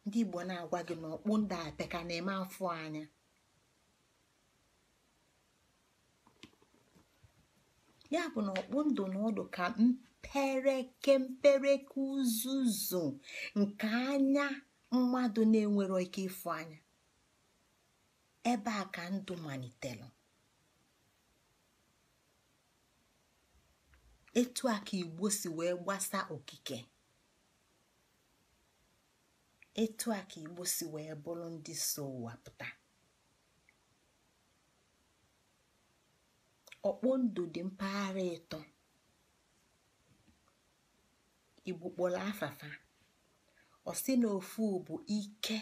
ndị igbo na-agwa gị na ọkpụ ndụ na-eme afọ anya ya bụ na okpu ndụ na ọdụ ka mpereke uzuzu nke anya mmadụ na-enwero ike ịfụ anya ebe a ka ndụ malitere etu a ka igbo si wee gbasa okike etu a ka igbo si wee bụrụ ndị so ụwa pụta ọkpọ ndụ dị mpaghara ịtọ igbo kpọrọ afafa ọsị na ofu bụ ike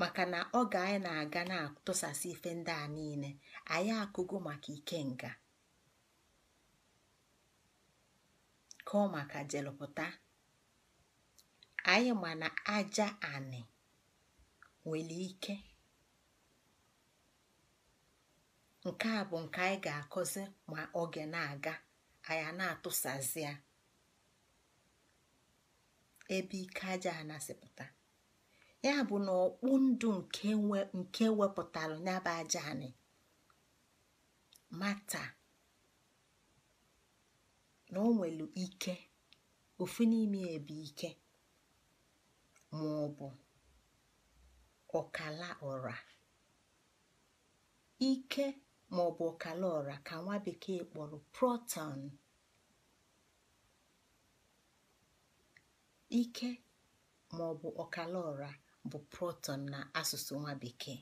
maka na oge anyị na-aga na-atụsasị ife ndị a niile anyị akụgo maka ike nga kọọ maka jelụpụta anyị mana na aja anị nwere ike nke a bụ nke anyị ga-akọzi ma oge na-aga anyị na-atụsazi ya ebe ike aja a nasịpụta ya bụ na ọkpụ ndụ nke wepụtara nyaba aja anị mata na o nwere ike ofu n'ime ebe ike ma ọ bụ ọkala ọra ike ma ọ bụ ọkala ọra ka nwa bekee kpọrọ proton Ike ma ọ bụ ọkala bụ proton na asụsụ nwa bekee.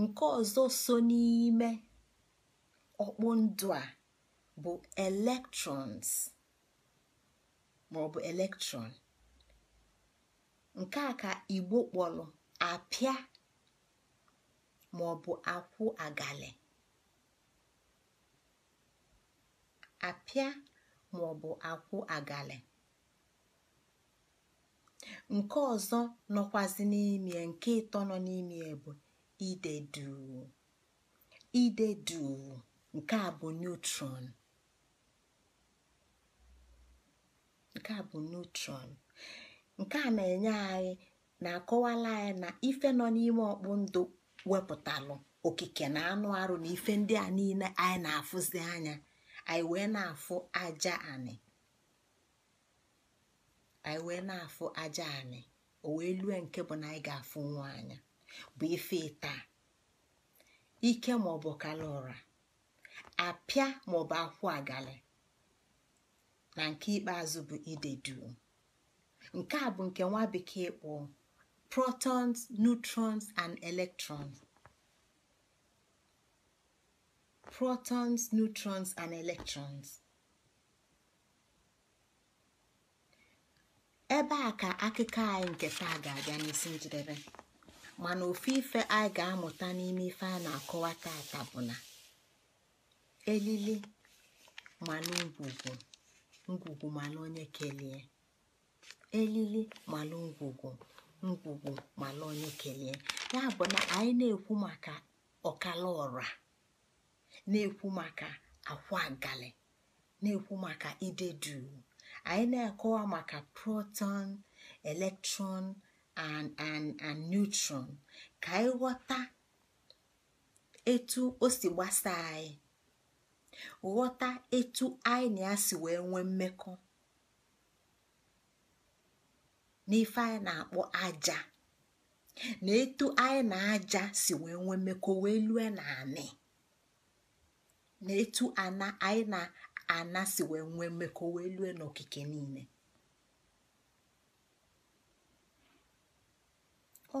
Nke ọzọ so n'ime ọkpụndụ a bụ electrons ma ọ bụ electron. Nke a ka Igbo kpọrọ apịa bụ akwụ agalị. Apịa maọbụ akwụ agali, nke ọzọ nọkwazi n'ime nke ịtọ nọ n'ime bụ ide duu ide duu nke a bụ neutron nke a bụ neutron nke a na-enye anyị na-akọwala anyị na ife nọ n'ime ọkpụ ndụ wepụtalụ okike na anụ arụ na ife ndị a niile anyị na-afụzi anya anyị wee na-afụ aja anị anyị wee na-afụ aja anị o wee lue nke bụ na anyị ga-afụ nwa anya bụ ife taa ike ma ọ bụ kala ụra apịa bụ akwụ agali na nke ikpeazụ bụ ide duu nke a bụ nke nwa bekee kpọọ protons neutrons and electrons protons neutrons and electrons ebe a ka akụkọ anyị nke taa ga-abịa n'isi njedebe mana ofu ife anyị ga-amụta n'ime ife a na-akọwa tata bụ na elili mana ngwugwu ngwugwu mana onye kelee elili mana ngwugwu ngwugwu mana onye kelee ya bụ na anyị na-ekwu maka ọkala ọra na-ekwu maka akwa na-ekwu maka ide duu anyị na-akọwa maka proton electron and and neutron ka anyị ghọta etu o si gbasa anyị ghọta etu anyị na ya si wee nwee mmekọ n'ife anyị na-akpọ aja na etu anyị na aja si wee nwee mmekọ wee lue na anị na etu ana anyị na-ana si wee nwee mmekọ wee lue n'okike niile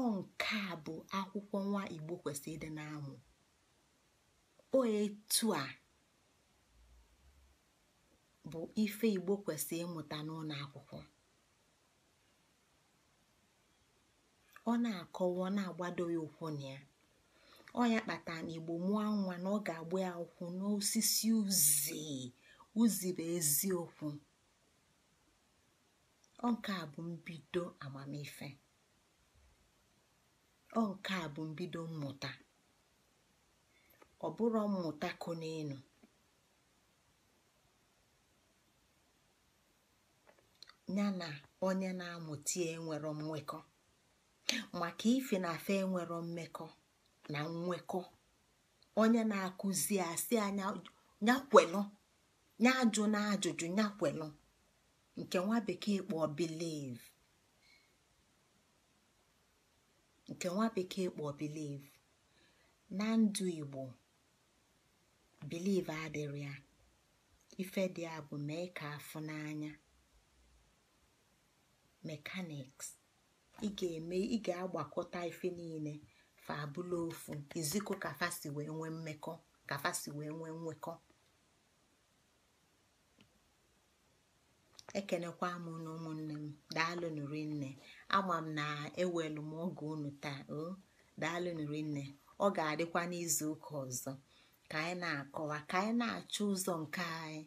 ọ nke a bụ akwụkwọ nwa igbo kwesịrị ịdị na-amụ o etu a bụ ife igbo kwesịrị ịmụta n'ụlọ akwụkwọ ọ na-akọwa ọ na-agbado ya ụkwụ na ya ọnya kpatara na igbo mụọ nwa na ọ ga-agba ya ụkwụ n'osisi uzi uzi bụ eziokwu ọ nke a bụ mbido amamife ọ nke a bụ mbido mmụta ọ bụrụ mmụta konenu ya na onye na-amụta enwero mmekọ maka ife na afe enwero mmekọ na nwekọ onye na-akụzi asị anya nyakwelụ nya ajụ na ajụjụ nyakwelụ nke nwa bekee kpọ biliv nke nwa bekee na ndụ igbo biliv adịrị ya ife dị ya bụ mee ka afụ n'anya mekaniks ị ga-eme ị ga-agbakọta ife niile fa abụla ofu izikọ ka wee nwee mmekọ ka wee nwee nwekọ ekenekwa m na ụmụnne m daalụ nụrụ nne ama m na ewelu m oge unu taa o daalụ nụrụ nne ọ ga-adịkwa n'izu ụka ọzọ ka anyị na-akọwa ka anyị na-achọ ụzọ nke anyị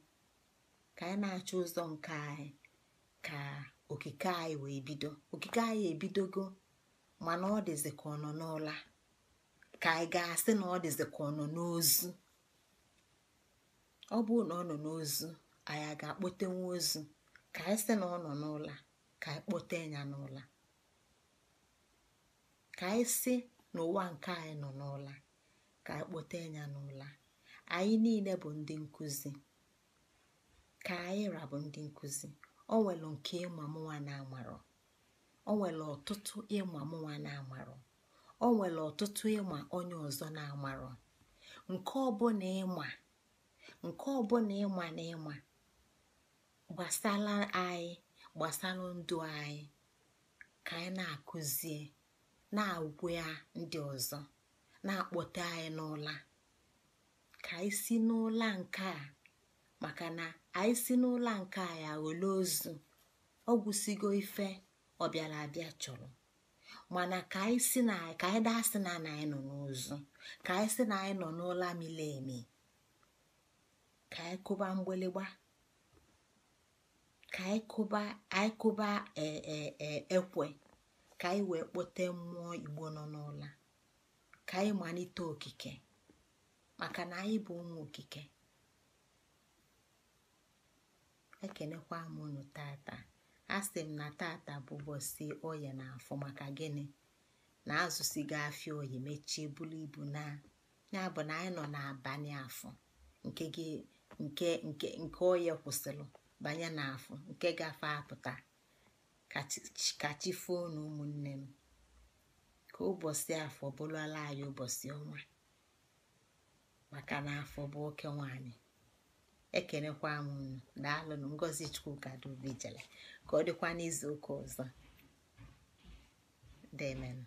ka anyị na-achọ ụzọ nke anyị ka okike anyị wee bido okike anyị ebidogo mana ọ dịzi ka ọ nọ n'ụla ka anyị ga-asị na ọ dịzị ka ọ nọ n'ozu ọ bụrụ na ọ nọ n'ozu anyị a ga-akpọte nwa ozu ka anyị sị na ọ nọ n'ụlọ ka anyị kpọte ya n'ụlọ ka anyị sị n'ụwa nke anyị nọ n'ụlọ ka anyị kpọte ya n'ụlọ anyị niile bụ ndị nkụzi ka anyị rabụ ndị nkụzi ọ nwere nke ịma mụnwa na amarọ o nwere ọtụtụ ịma mụnwa na amarọ o nwere ọtụtụ ịma onye ọzọ na-amarọ nke ọbụla ịma nke ịma na ịma gbasara anyị gbasara ndụ anyị ka anyị na-akụzie na-agwa ndị ọzọ na akpọta anyị n'ụla ka anyị si n'ụla nke a maka na anyị si n'ụla nke a ya ghọle ozu ọ gwụsigo ife ọ bịara abịa chọrọ mana ka anyị si na ka anyị daa sị na anyị nọ n'ozu ka anyị si na anyị nọ n'ụla mile emi ka anyị kụba mgbịlịgba ka anyị kụba anyị kụba e, e, e, ekwe ka anyị wee kpote mmụọ igbo nọ n'ụla ka anyị malite okike maka na anyị bụ ụmụ okike ekenekwa m unu tata asị m na tata bụ ụbọchị oya na afọ maka gịnị na azụsigo afia oyi mechie bulu ibu na ya na anyị nọ n'abalị afọ nke gị nke nke nke kwụsịrị banye n'afọ nke gafe apụta ka foo na ụmụnne m ka ụbọchị afọ bụrụla anyị ụbọchị ọnwa maka na afọ bụ oke nwanyị ekenekwa m unu daalụnụ ngozi chukwu dubijele ka ọ dịkwa n'izu ụka ọzọ demenụ